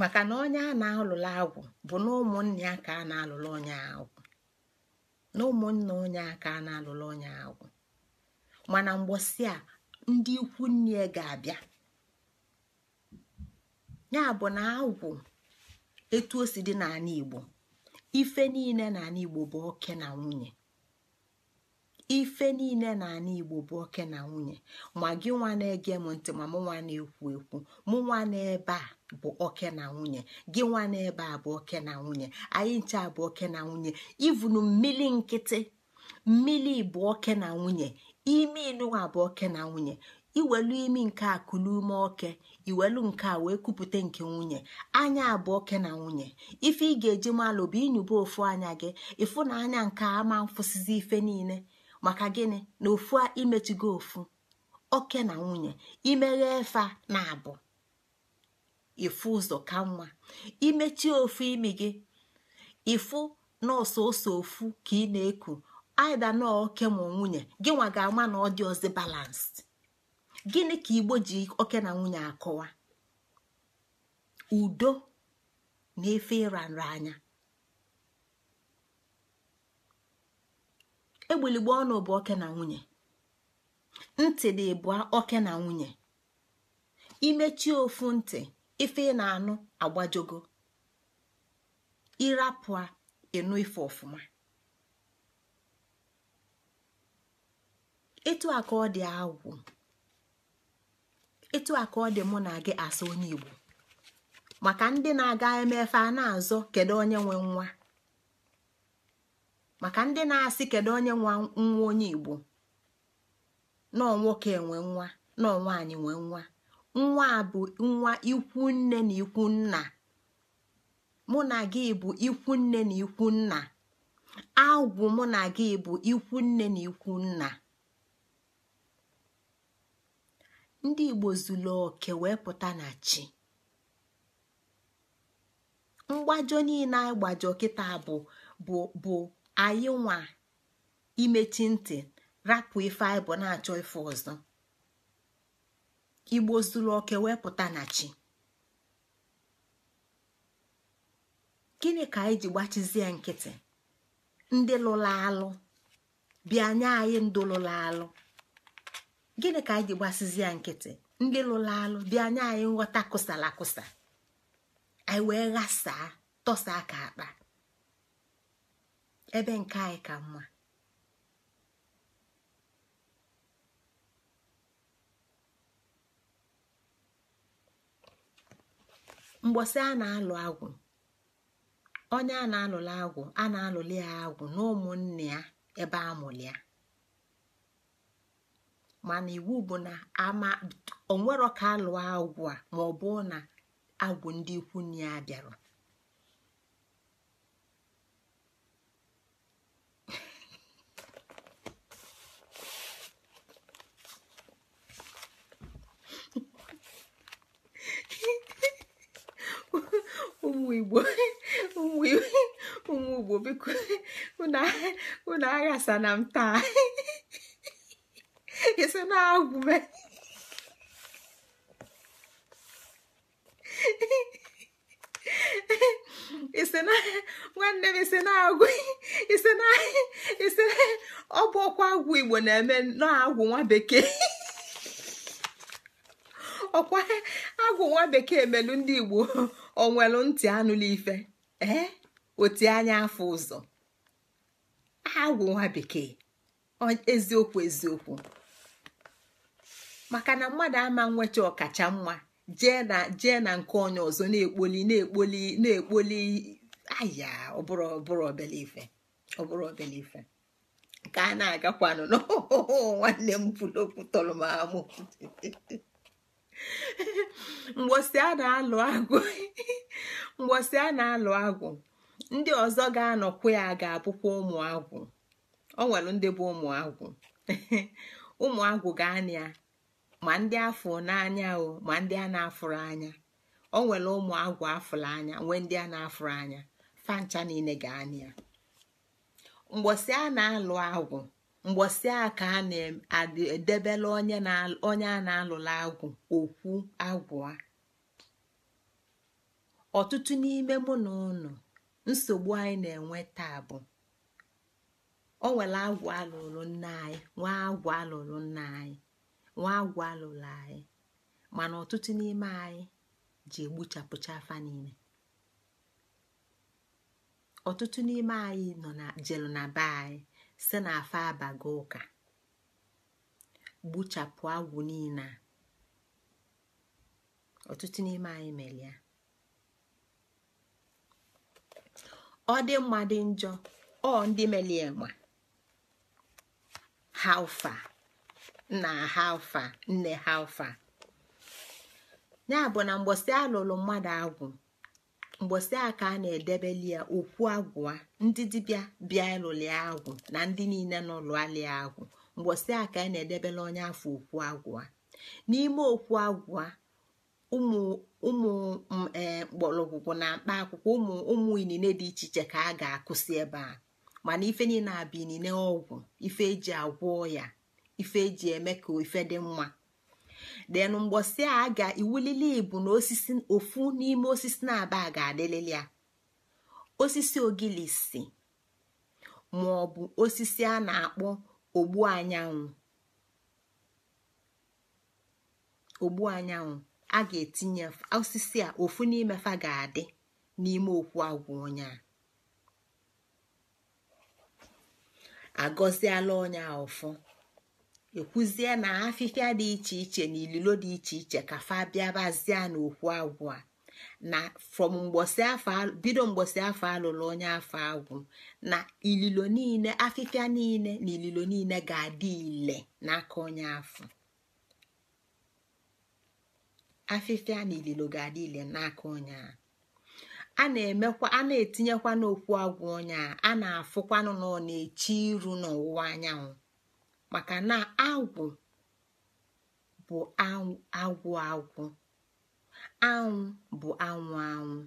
maka na onye a na-alụlụ agwụ bụ na ụmụnne ya ka a na-alụlụ onye agwụ na ụmụnne onye a ka a na-alụlụ onye agwụ mana mgbọsị a ndị ikwu nne ga-abịa ya bụ na agwụ etu o si dị n'ala igbo ife niile n'ala igbo bụ oke na nwunye ife niile n'ala igbo bụ oke na nwunye ma gị nwa na-ege m ntị ma mụ nwa na-ekwu ekwu mụ nwa n'ebe a bụ oke na nwunye gị nwa n'ebe a bụ oke na nwunye anyị ncha bụ oke na nwunye ivunu mmiri nkịtị mmiri bụ oke na nwunye ime ịnụwa bụ oke na nwunye iwelu imi nke a kulu ume oke iwelu nke a wee kupụta nke nwunye anya abụọ oke na nwunye ife ị ga-eji malụ bụ inyụba ofu anya gị ịfụ na anya nke ama mfụsizi ife niile maka gịnị na ofu gị ofu oke na nwunye imeghe efe na abụ ifu ụzọ ka nwa imechi ofu imi gị ịfụ nọọsụ ose ofu ka ị na-eku aida na oke ma nwunye gị nwa ga na ọ dị ọzọ balansị gịnị ka igbo ji oke na nwunye akọwa udo na efe ịra anya. egbuligbo ọnụ bụ oke na nwunye ntị dị bụ oke na nwunye imechi ofu ntị ife ị na-anụ agbajogo ịrapụ ịnụ ife ọfụma etu aka ọ dị agwụ etu a ka ọ dị mụ na gị asa onye igbo maka ndị na-aga emefe a na-azọ kedu onye nwe nwa maka ndị na-asị kedu onye nwa nwa onye igbo nọọ nwoke enwe nwa nọọ nwaanyị nwee nwa nwa bụ nwa ikwu nne na ikwu nna mụ na gị bụ ikwu nne na ikwu nna agwụ mụ na gị bụ ikwu nne na ikwu nna ndị igbo zuru oke wee pụta na chi mgbajọ niile anyị kịta bụ bụ bụ anyị nwa imechi ntị rapụ ife anyị bụ na-achọ ife ọzọ igbo zuru oke wee pụta na chi gịnị ka anyị ji gbachizie nkịtị ndị lụrụ alụ bịa nye anyị ndụ lụrụ alụ gịnị ka anyị ji gbasizi ya nkịtị ndị lụrụ alụ bịa anya anyị nghọta kụsala kụsa anyị wee ghasaa tọsa aka akpa ebe nke anyị ka mma mgbọsị a na-alụ agwụ onye a na-alụla agwụ a na-alụli ya agwụ na ụmụnne ya ebe a ya mana iwu bụ na ama onwero ka alụọ agwụ a ma ọ bụ na agwụ ndị ikwu na ya bịara ụmụ igbo ụmụ igbo biko unu aghasa na m taa esse não é algo, velho. na nwanne m ise na-agwụ ise na ise ọ bụ ọkwa agwụ igbo na-eme na-agwụ nwa bekee ọkwa agwụ nwa bekee melu ndị igbo onwelu ntị anụla ife ee oti anya afọ ụzọ agwụ nwa bekee eziokwu eziokwu maka na mmadụ ama nweta ọkacha mma jee na jee na nke onye ọzọ na-ekpoli na-ekpoli na-ekpoli aya ọbụrụ ọbụrụ obele ife ọbụrụ obele ife ka a na-agakwanụ nwanne m pụlokwu tọrọ m amụ mgbosi a na-alụ agụ mgbosi a na-alụ agụ ndị ọzọ ga-anọkwu ya ga-abụkwa ụmụ agwụ ọ nwere ndị bụ ụmụ agwụ ụmụ agwụ ga-anị ya ma ndị afọ n'anya o ma ndị a na-afụrụ anya o nwere ụmụ agwụ afụrụ anya nwee ndị a na-afụrụ anya fancha niile ga-anị ya mgbọsị a na-alụ agwụ mgbọsị a ka a na-edebela onye a na-alụla agwụ okwu agwụ a ọtụtụ n'ime mụ na ụnụ nsogbu anyị na-enwe taa bụ o nwere agwụ alụrụ nna anyị nwa agwụ alụrụ nna anyị nwa agwọ alụla anyị mana ọtụtụ n'ime anyị ji egbuchapụcha afa niile ọtụtụ n'ime anyị nọ na jelu na be anyị si na afa abago ụka gbuchapụ agwụ niile a ọtụtụ n'ime anyị mere ya ọ dị mma dị njọ ọ ndị melie ma ha ụfa nna ha alfa nne ha alfa ya bụ na mgbọsị alụlụ mmadụ agwụ mgbọsị ka a na-edebeli ya okwu agwụa ndị dibịa bịa ịlụli agwụ na ndị niile nọ lụalị agwụ a ka a na-edebela onye afọ okwu agwụa n'ime okwu agwụa ụmụ ụmụ mkpọrọgwụgwụ e, na mkpa akwụkwọ ụmụ ụmụ inine dị iche iche ka a ga-akụsi ebe a mana ife niile abụ inine ọgwụ ife eji agwọ ya ife eji eme ka ife dị mma den a ga iwulili ibu na osisi ofu n'ime osisi na-aba ga-adịlili ya osisi ogilisi ma ọ bụ osisi a na-akpọ ogbu anyanwụ ogbu anyanwụ a ga-etinye osisi a ofu n'ime fa ga-adị n'ime okwu agwụ onye a agọziela onye a ọfọ ekwuzie na afịfịa dị iche iche na ililo dị iche iche ka fa bịa na n'okwu agwụ a na from afọ bido mgbosi afọ alụrụ onye afọ agwụ na ililo niile afịfịa niile na ililo niile ga-adị ile n'aka onye afọ afịfịa na ililo ga-adị ile n'aka onye a a na-emekwa a na-etinyekwa n'okwu agwụ onye a a na-afụkwanụ na ọ na iru n'ọwụwa anyanwụ maka na agwụ bụ agwụ agwụ anwụ bụ anwụ anwụ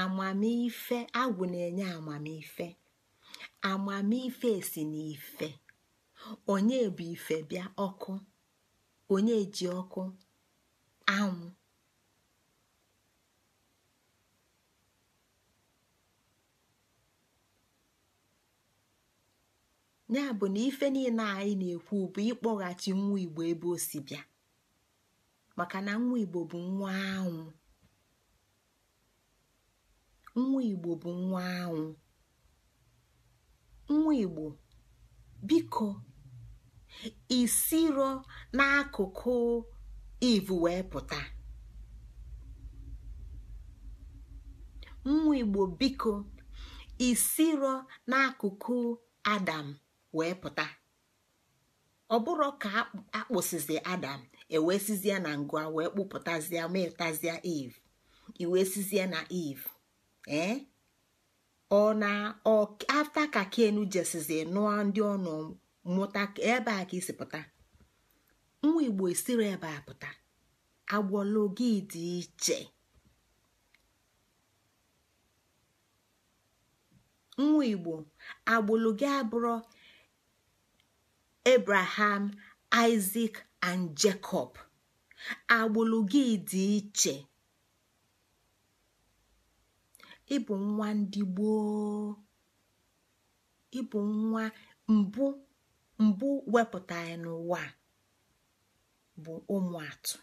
amamife agwụ na-enye amamife amamife si n'ife onye bụ ife bịa ọkụ onye ji ọkụ anwụ ya bụ na ife niile anyị na-ekwu bụ ịkpọghachi nwa igbo ebe o si bịa maka na nwa igbo bụ nwa anwụ nwa igbo bụ nwa anwụ nwa igbo biko isiro n'akụkụ ivu wee pụta nwa igbo biko isiro n'akụkụ adam wee pụta ọ bụrụ ka akpụsizi adam ewesizie na ngụa wee kpụpụtazie metazia eve iwesizie na eve ee eh? ọ na afta ka ken jesizi nụọ ndị ọnụ mụta ebe a ka isi pụta nwa igbo esiri ebe a pụta agwọlụ dị iche nwa igbo agbụlụ gị abụrụ abraham isaac and jacob agbụlụ gị dị iche ịbụ nwa ndị gboo ịbụ nwa mbụ mbụ wepụta n'ụwa bụ ụmụ atụ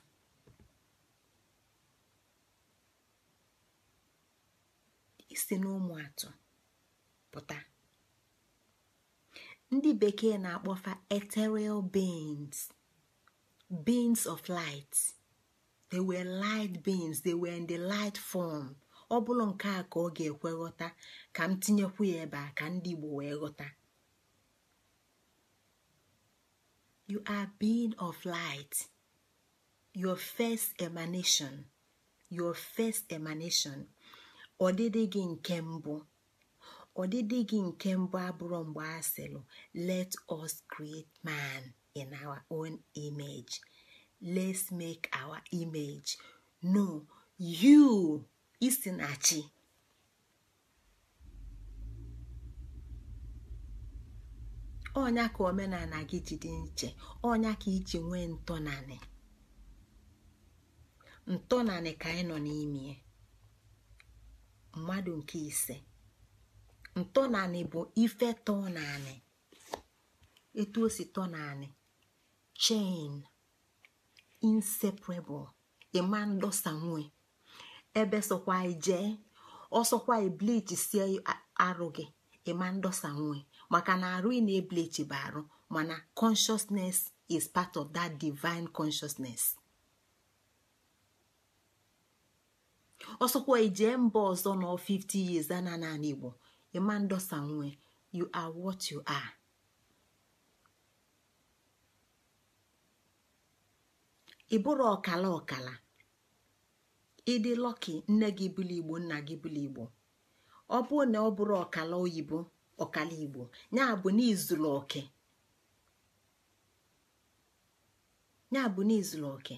isi n'ụmụ atụ pụta ndị bekee na-akpọfa ethereal beings beings of light they were light beings they were in the light form ọ bụrụ nke a ka ọ ga-ekwe ghọta ka m tinyekwu ya ebe a ka ndị Igbo wee ghọta you are being of light your first emanation your first emanation ọdịdị gị nke mbụ ọdịdị gị nke mbụ abụrụ mgbe a sịlụ let us create man in our own image let's make our image no you isi na chi ka omenala gị ji dị nche onya ka iji nwee ntọnanị ntọnanị ka anyị nọ n'ime mmadụ nke ise ntọnanị bụ ife tọnanị etu o si tọnanị chain inseparable ịma ndọsa nwe ebe sokwa ijee ọsọkwa eblichi sie arụ gị ịma ndọsa nwe maka na arụ ị na-eblichi bụ arụ mana consciousness is part of that divine consciousness ọsọkwa ijee mba ọzọ nọ 50 years ana na igbo Emma Ndosanwe, you are what you are. ị bụrụ ọkala ọkala ịdị lọki nne gị bụlụ igbo nna gị bụlụ igbo ọ bụ na ọ bụrụ ọkala oyibo ọkala igbo ya bụ n'izuru oke oke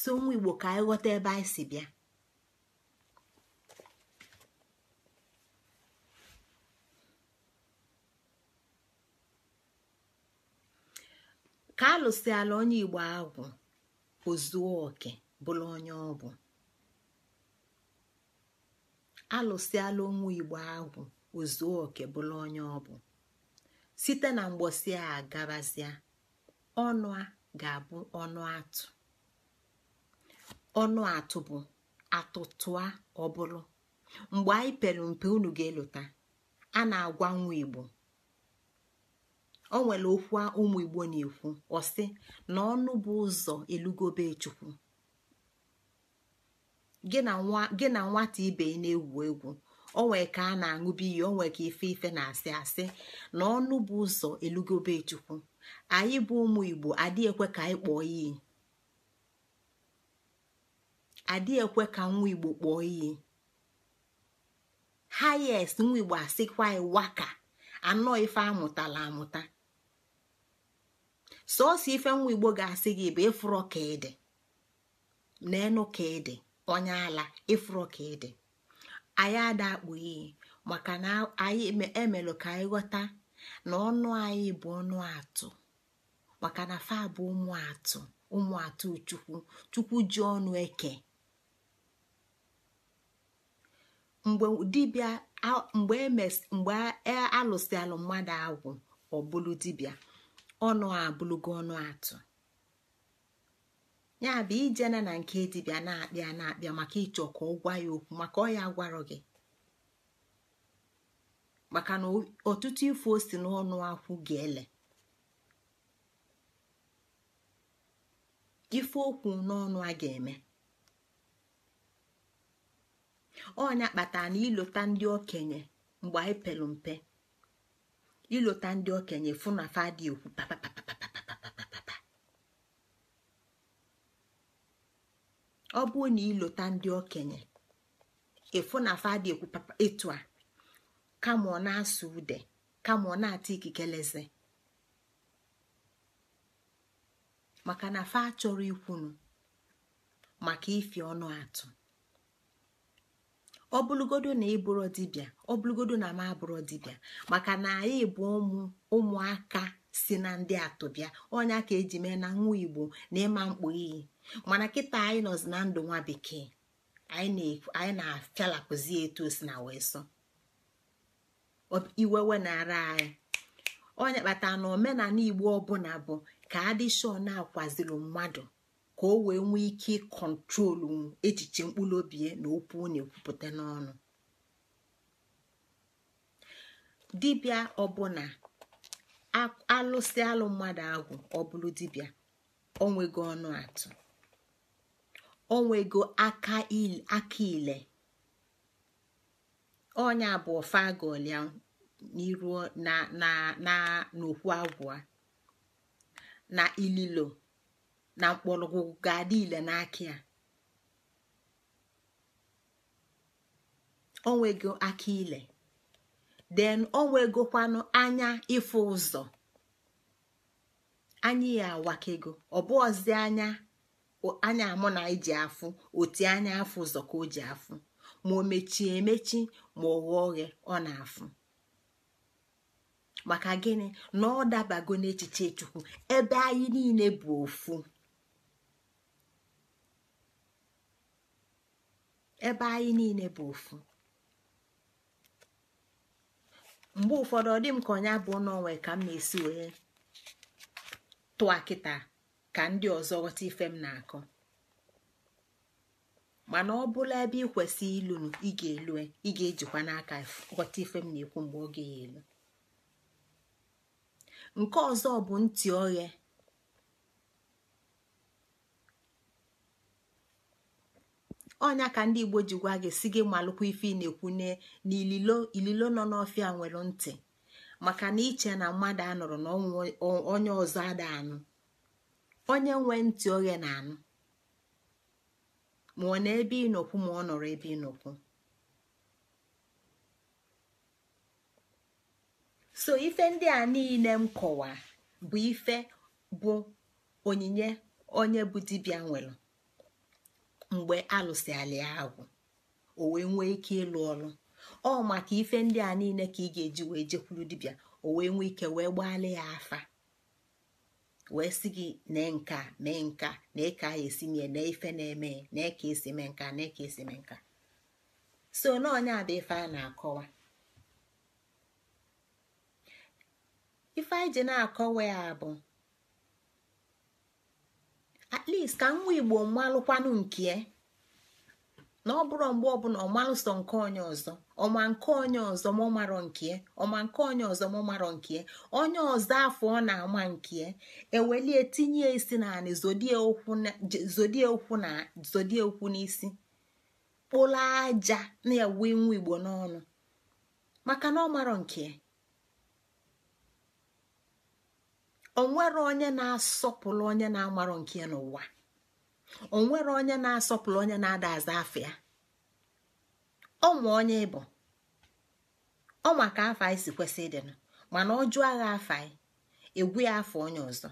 so nwa igbo ka anyị ghọta ebe anyị si bịa ka alụsịala onye igbo agwụ ozuo oke bụrụ onye ọ bụ site na mgbosi a gabazia ọnụ a ga-abụ ọnụ atụ ọnụ atụ bụ atụtụa ọbụrụ mgbe anyị pere mpe unu ga elụta a na-agwa nwa igbo o nwere okwu ụmụ igbo na-ekwu ọsị na ọnụ bụ ụzọ elugobe chukwu gị na nwata ibe na-egwu egwu onwe ka a na-aṅụbi iyi onwe ka ife ife na-asị asị na ọnụ bụ ụzọ elugobe chukwu anyị bụ ụmụ igbo adịghị ekwe ka anyị kpọọ iyi adịghị ekwe ka nwa igbo kpọọ iyi hayes nwa igbo asịkwa waka anọ ife amụtala amụta sọsọ ife nwa igbo ga-asị gị bụ ịfụrọ ka ịdị n'enu ka ịdị onye ala ịfụrọ ka ịdị anyị ada akpụ iyi maka na anyị emelụ e ka anyị ghọta na ọnụ anyị bụ ọnụ atụ maka na fa bụ ụmụ atụ ụmụ atụ chukwu chukwu ji ọnụ eke mgbe dibia mgbe e e alụsịalụ mmadụ agwụ ọ bụlụ dibịa ọnụ abụlụgo ọnụ atụ ya bụ ijena na nke dibịa na-akpịa na-akpịa maka ịchọ ka ọ gwa ya okwu maka ọ ya gị maka na ọtụtụ ife o si n'ọnụ akwụ ga-ele ife okwu n'ọnụ a ga-eme ọnya kpatara na ilota ndị okenye mgbe anyị pelu mpe ilota ndị okenye fụ na fa okwu ọ bụrụ na ilota ndị okenye ịfụ na afa dị ekwu etu a kama ọ na-asụ ude kama ọ na-ata ikikeleze maka na fa achọrọ ikwunu maka ifi ọnụ atụ ọ na ịbụrụ dibịa ọ na m abụrụ dibịa maka na anyị bụ ụmụ ụmụaka si na ndị atụbịa ọnya ka eji mee na nwa igbo na ịma mkpu iyi mana kịta anyị nọzi na ndụ nwa bekee anyị na-afialapụzi etu o si na wee sọ iwewe na-ara anyị onye kpatara na omenala igbo ọbụla bụ ka adịshọ na-akwaziri mmadụ ka o wee nwee ike ịkọntrolu echiche mkpụrụ obi na okwu na-ekwupụta n'ọnụ dibịa ọbụla alụsị alụ mmadụ ahụ ọ dibia dibịa onwego ọnụ atụ onwego aka ile onye abụọ ofe n'iru na n'okwu agwụ na ililo na mkpọrọgwụ ga-adị ile n'aka ya onwego aka ile den onwegokwanụ anya ịfụ ụzọ anyị ya awakego ọbụọzi anya anya amụ na ji afụ otu anya afụ ụzọ ka o ji afụ ma o mechie emechi ma ọ ghọọ oghe ọ na-afụ maka gịnị na ọ dabago n'echiche chukwu ebe anyị niile bụ ofu ebe anyị niile bụ ofu mgbe ụfọdụ ọ dị m ka ọnya bụ n'onwe ka m na-esi wee tụọ ka ndị ọzọ ghọta ife m na-akọ mana ọ bụla ebe ị kwesị ilu ị ga-elu e, ị ga-ejikwa n'aka ghọta ife m na-ekwu mgbe ọ ga-elu nke ọzọ bụ ntị oghe ọnya ka ndị igbo ji gwa gị si gị malụkwa ife ị na-ekwu na ililo nọ n'ọfịa nwere ntị maka na iche na mmadụ anụrụ na onye ọzọ ada anụ onye nwe ntị oghe na anụ ma ọ na ebe ịnọkwu ma ọ nọrọ ebe ịnọkwu so ife ndị a niile m kọwa bụ ife bụ onyinye onye bụ dibịa nwere mgbe alụsịala ya agwụ o wee nwee ike ịlụ ọlụ ọ maka ife ndị a niile ka ị ga-eji wee jekwuru dibịa o wee nwee ike wee gbaala ya afa wee sị gị nee nka mee nka na ya esi mie na ife na-eme na eka esi mee nka na eka esi mee nka so na onye a bụ ife a na-akọwa ife anyị ji na-akọwa ya bụ at least ka nwa igbo mmalụkwanụ nke na ọ bụrụ mgbe ọbụla ọmalụsọ nke onye ọzọ ọma nke onye ọzọ mụ marọ nke ọma nke onye ọzọ mụ marọ nke onye ọzọ afọ ọ na-ama nke ewelie tinye isi naanị zodie okwu na zodie okwu n'isi kpụla aja na ewe nwa igbo n'ọnụ maka na ọ marọ nke onwere onye na-asọpụrụ onye na-amarọ nke n'ụwa o nwere onye na-asọpụrụ onye na-ada aza afọ ya ọnwa onye ịbụ ọnwa ka afọ anyị si kwesị ịdịnụ mana ọ jụọ agha afọ anyị egwu afọ onye ọzọ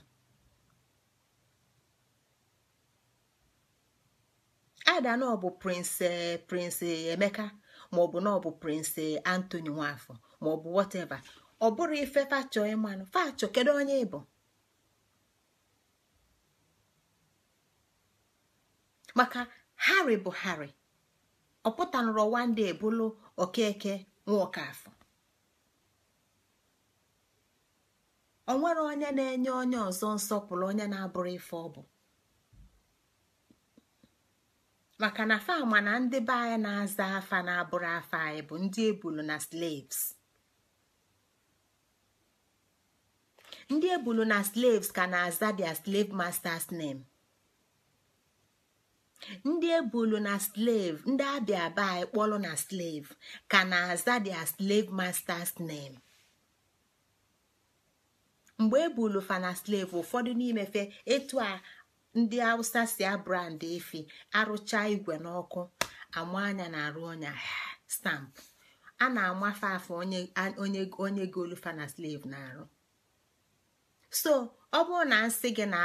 ada na prince prince emeka maọbụ na ọ bụ prince antony nwafọ maọbụ whatever ọ bụrụ ife fachọ ịmanụ fachọ kedu onye ịbụ maka hari bụ hari ọ pụtanụrụ ebulu okeke nwokafọ onwere onye na-enye onye ọzọ nsọpụrụ onye na-abụrụ ife ọ bụ maka na fama na ndị be anyị na-aza afa na-abụrụ afa anyị bụ ndị ebulu na slaves ndị ebulu na slaves ka na-aza their slave masters name. ndị ebulu na slave ndị abịa aba anyị na slave ka na-aza dia slave masters name mgbe ebulu fa na slave ụfọdụ n'imefe etu a ndị hausa si abrand efi arụcha igwe n'ọkụ ama anya na-arụ ọnya stamp a na-amafe afọ onye golufa na slave na-arụ so ọ bụrụ na nsị gị na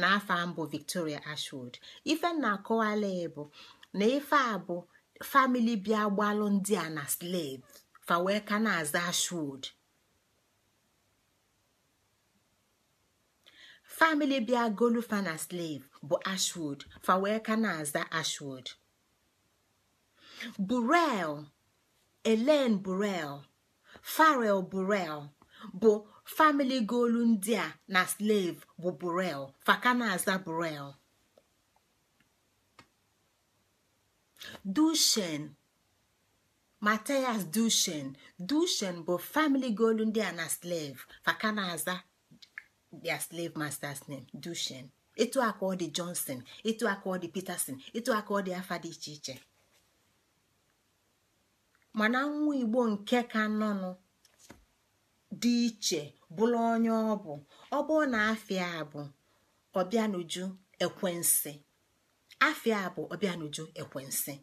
N'afọ a mbụ victoria ashwood ife na akọwala bụ na ife a bụ famili bịa gbalụ ndị a na slave fa ka na-aza ashwood famili bịa golufa na slave bụ ashwood fa ka na-aza ashwood burel elen burel farel burel bụ famili goolu ndị a na slave bụ burel fakanaza burel dushen mateas dushen dushen bụ famili goolu ndị a na slave fakanaza their slave master's name dushen etu aka ọ dị johnson etu aka ọ dị peterson etu aka ọ dị afa dị iche iche mana nwa igbo nke ka nọnụ dị iche bụrụ onye ọ bụ ọ bụ na afịa bụ ọbịanuju ekwensi afịa bụ ọbịanuju ekwensi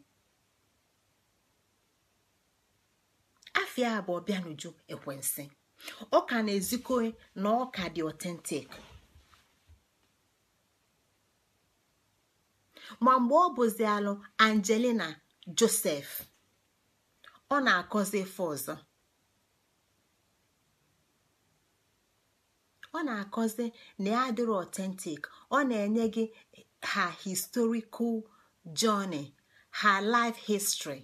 afịa bụ ọbịanuju ekwensi ọ na-ezikọ na ọ dị otentik ma mgbe ọ bụzi alụ angelina josef ọ na-akọzi ife ọzọ ọ na-akọzi na ya dịrị ọtentik ọ na-enye gị ha historical journey ha life history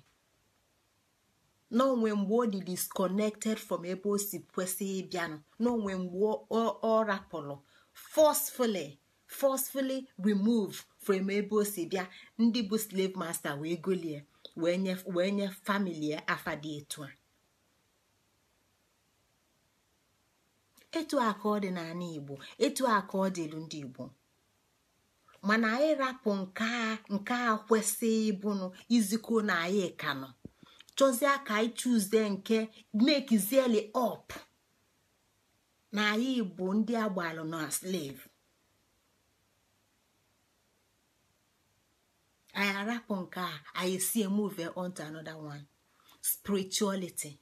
n'onwe mgbe o dị disconnected from ebe o si kwesị ịbịanụ n'onwe mgbe ọ rapụrụ forcefully forcefully remove from ebe o si bịa ndị bụ slave master wee golie wee nye famili afadị etu a etu a ọ dị igbo etu a ọ ndị igbo mana anyị rapụ nke a kwesịghị ịbụnụ izikọ na anyị kanụ chọzie ka anyị chụzie nke mekizieli ọpụ na anyị bụ ndị agbalụ na slave anyị arapụ nke a anyị sie move on to another one spirituality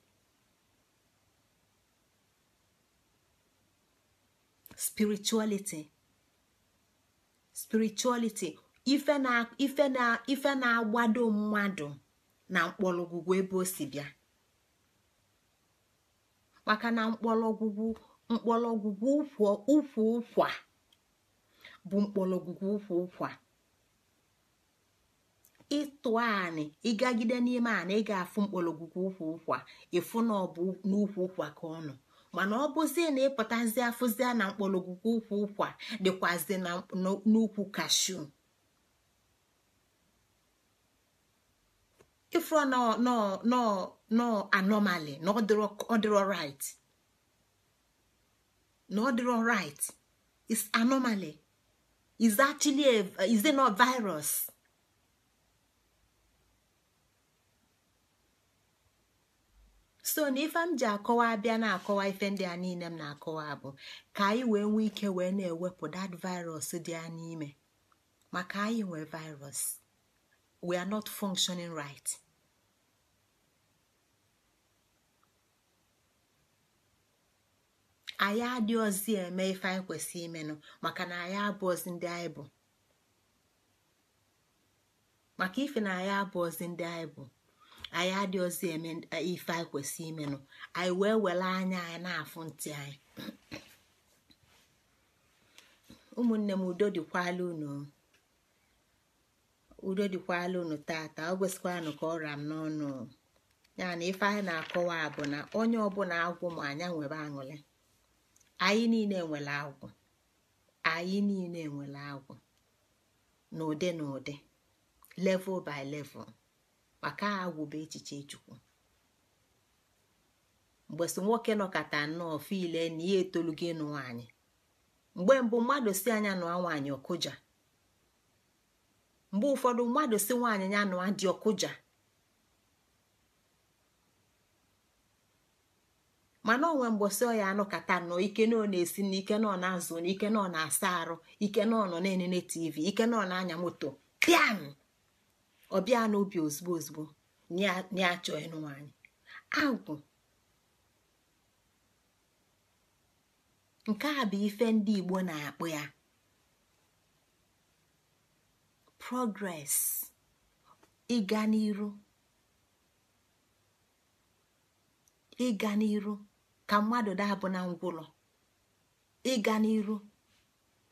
spirituality spirituality ife na ife na na-agbado mmadụ na mkpọrọgwụgwụ ebe o si bịa maka na mkpọrọgwụgwụ mkpọrọgwụgwụ ụkwụ ụkwa bụ mkpọrọgwụgwụ ụkwụ ụkwa ịtụ anị ịgagide n'ime anị ị ga-afụ mkpọrọgwụgwụ ụkwụ ụkwa ịfụ na ọ bụ n'ukwu ụkwa ka ọ nọ mana ọ bụzie na ịpụtazi afụzie na mkpọrọgwụgwụ ụkwụ ụkwa dịkwazi n'ukwu kashu ifro nọ anomali na ọ dịrọ right na ọ dịrọ right is anomaly is actually a is a virus so na ife m ji akọwa abịa na-akọwa ife ndị a niile m na-akọwa bụ ka anyị wee nwee ike wee na-ewepụ dat virus dị a n'ime maka anyị nwee virus we are not functioning right anyị adịghịzi eme ife anyị kwesị imenụ maka na anyị abụọzi ndị anyị bụ maka ife na anyị abụọzi ndị anyị bụ anyị adịghịzi eme e, ife anyị kwesị imenụ anyị wee were anya anyị na-afụ ntị anyị ụmụnne m udo dịkwala unu udo dịkwala unu tata o kwesịkwanụ ka ọ m n'ọnụ ya na ife anyị na-akọwa bụ na onye ọbụla agwụ ma anya nwere aṅụrị anyị niile nwere agwụ anyị niile nwere agwụ n'ụdị n'ụdị level by level. maka agwụba echiche chukwu mgbe so nwoke nọkata nnọọ fiile na ihe etolu gị nụ nwaanyị mgbe mbụ mmadụ si anya nụa nwaanyị ọkụja mgbe ụfọdụ mmadụ si nwaanyị ya nụa dị ọkụja mana onwe mgbọsị ọ ya anụkata nọ ike na ọ na-esi na ike na ọ na azụ na ike na ọ na asa arụ ike nọ nọ na-enene tv ike na ọ na anya moto piam ọbịa n'obi ozugbo ozugbo na-achọ ịnụ anyị agwụ nke a bụ ife ndị Igbo na-akpụ ya progress ịga n'iru ka mmadụ dabụ na ngwụlọ ịga n'iru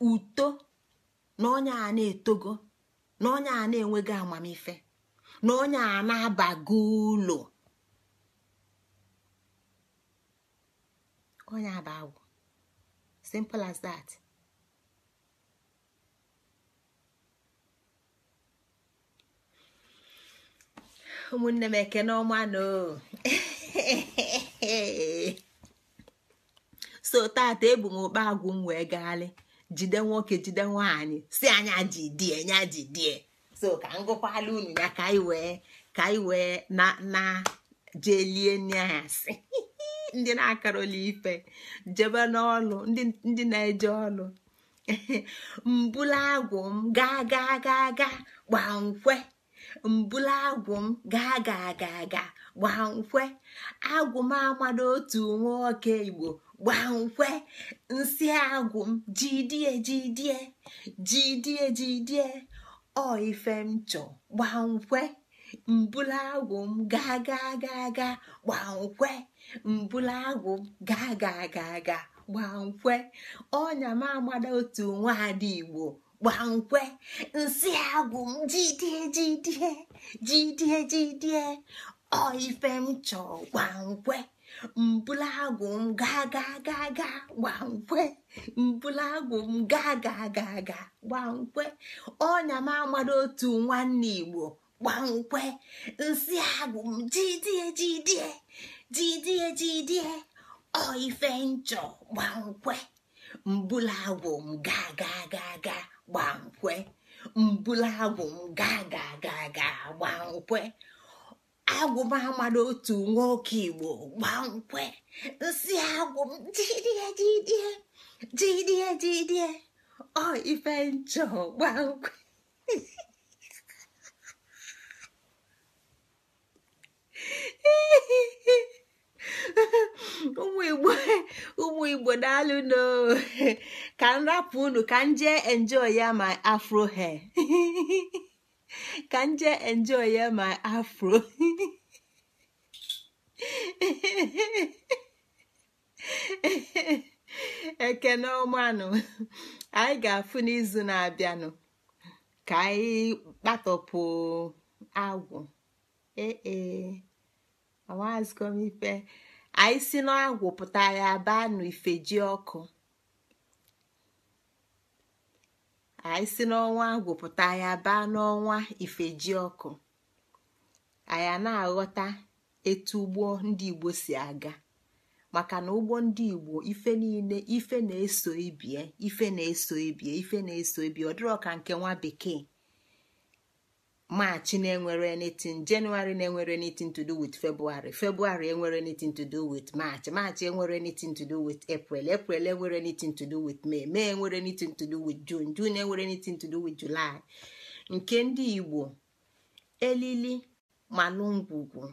uto na onye a na-etogo na onye a na-enweghị amamife na onye a na-abago ụlọ onye aba agwụ simple as that ụmụnne m ekene ọma na so tata ebu m okpa agwụ m wee gaalị jide nwoke jide nwaanyị si anya ji die nya ji die so ka ngụkwala unu ya ka anyị wee ka anyị wee na na jee lie nne ya si ndị na-akaroli ife jebe n'ọlụ ndị na-eje ọlụ mbula agwụ m gaa gaa gaa gaa gbaa nkwe mbula agwụ m gaa gaa gaa gaa gbaa nkwe agwụ m amado otu nwoke igbo gbankwe nsị agwụ m jidie jidie jidie jidie ọ ife m chọ gbankwe mbụla agwụ m gaa gaa gaa gaa gbankwe mbụla agwụ m gaa gaa gaa gaa gbankwe ọnya m agbada otu nwaada igbo gbankwe nsị agwụ m jidie jidie jidie jidie ọ ife m chọ gbankwe agwụ m gaa gaa gaa gaa gbankwe agwụ m gaa gaa gaa gaa gbankwe ọnya m amado otu nwanne igbo gba gbankwe nsị agwụ m jidie jidie jidie jidie ọ ife nchọ gbankwe agwụ m gaa gaa gaa gaa gbankwe agwụ m gaa gaa gaa gaa gbankwe agwụba amado otu nwoke igbo gbankwe nsị agwụ jidie jidie jidie jidie ọ ife nchọ gbankwe ụmụ igbo ụmụ igbo daalụ no ka m rapụ unu ka m jee enjoy ya ma afro hair ka m jee enjoy ya ma afro ekene ọmanụ anyị ga-afụ n'izu na-abịanụ ka anyị kpatọpụ agwụ ee awazgom e. ife anyị si n'agwụ pụta ya baa ji ọkụ anyị si n'ọnwa gwụpụta ya baa n'ọnwa ifeji ọkụ anyị na-aghọta etu ụgbọ ndị igbo si aga maka na ụgbọ ndị igbo ife niile ife na-eso ibie ife na-eso ibie ife na-eso ibie ọ dịrọ ka nke nwa bekee Maachị na-enwere anything Jenụwarị na-enwere anything to do with February February enwere anything to do with March March enwere anything to do with April April enwere anything to do with May May enwere anything to do with June June enwere anything to do with July nke ndị Igbo elili manụ ngwugwu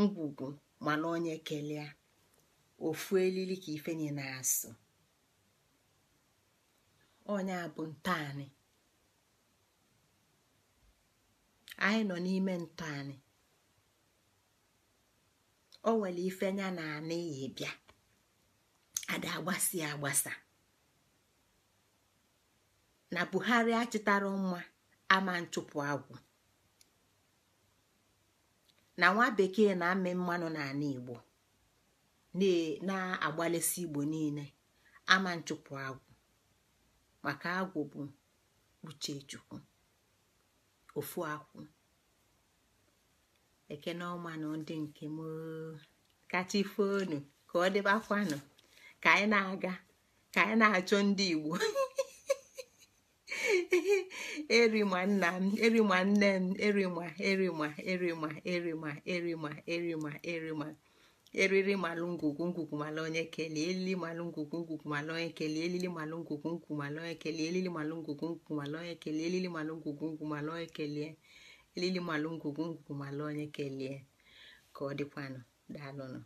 ngwugwu mana onye kelee ofu elili ka ifenye na-asụ onye abụ ntaanị anyị nọ n'ime ntọ anyị o nwere ife nya na anịghị bịa ada agbasi agbasa na buhari achịtara mma ama nchụpụ agwụ na nwa bekee na-amị mmanụ n'ala igbo na agbalịsị igbo niile ama nchụpụ agwụ maka agwụ bụ uche chukwu ofu akwụ ekene ọmanụ ndị nke m kacha ife ka ọ nọ, ka anyị na-aga ka anyị na-achọ ndị igbo erima nna m erima nne m erima erima erima erima erima erima erima eriri malụ ngwugwu ngwugwu malụ onye kelee elili malụ ngwugwu ngwugwu malụ onye kelee elili malụ ngwugwu ngwu malụ onye kelee elili malụ ngwugwu ngwugwu malụ onye kelee elili malụ ngwugwu ngwu malụ onye kelee elili malụ ngwugwu ngwugwu malụ onye kelee ka ọ dịkwanụ daalụnụ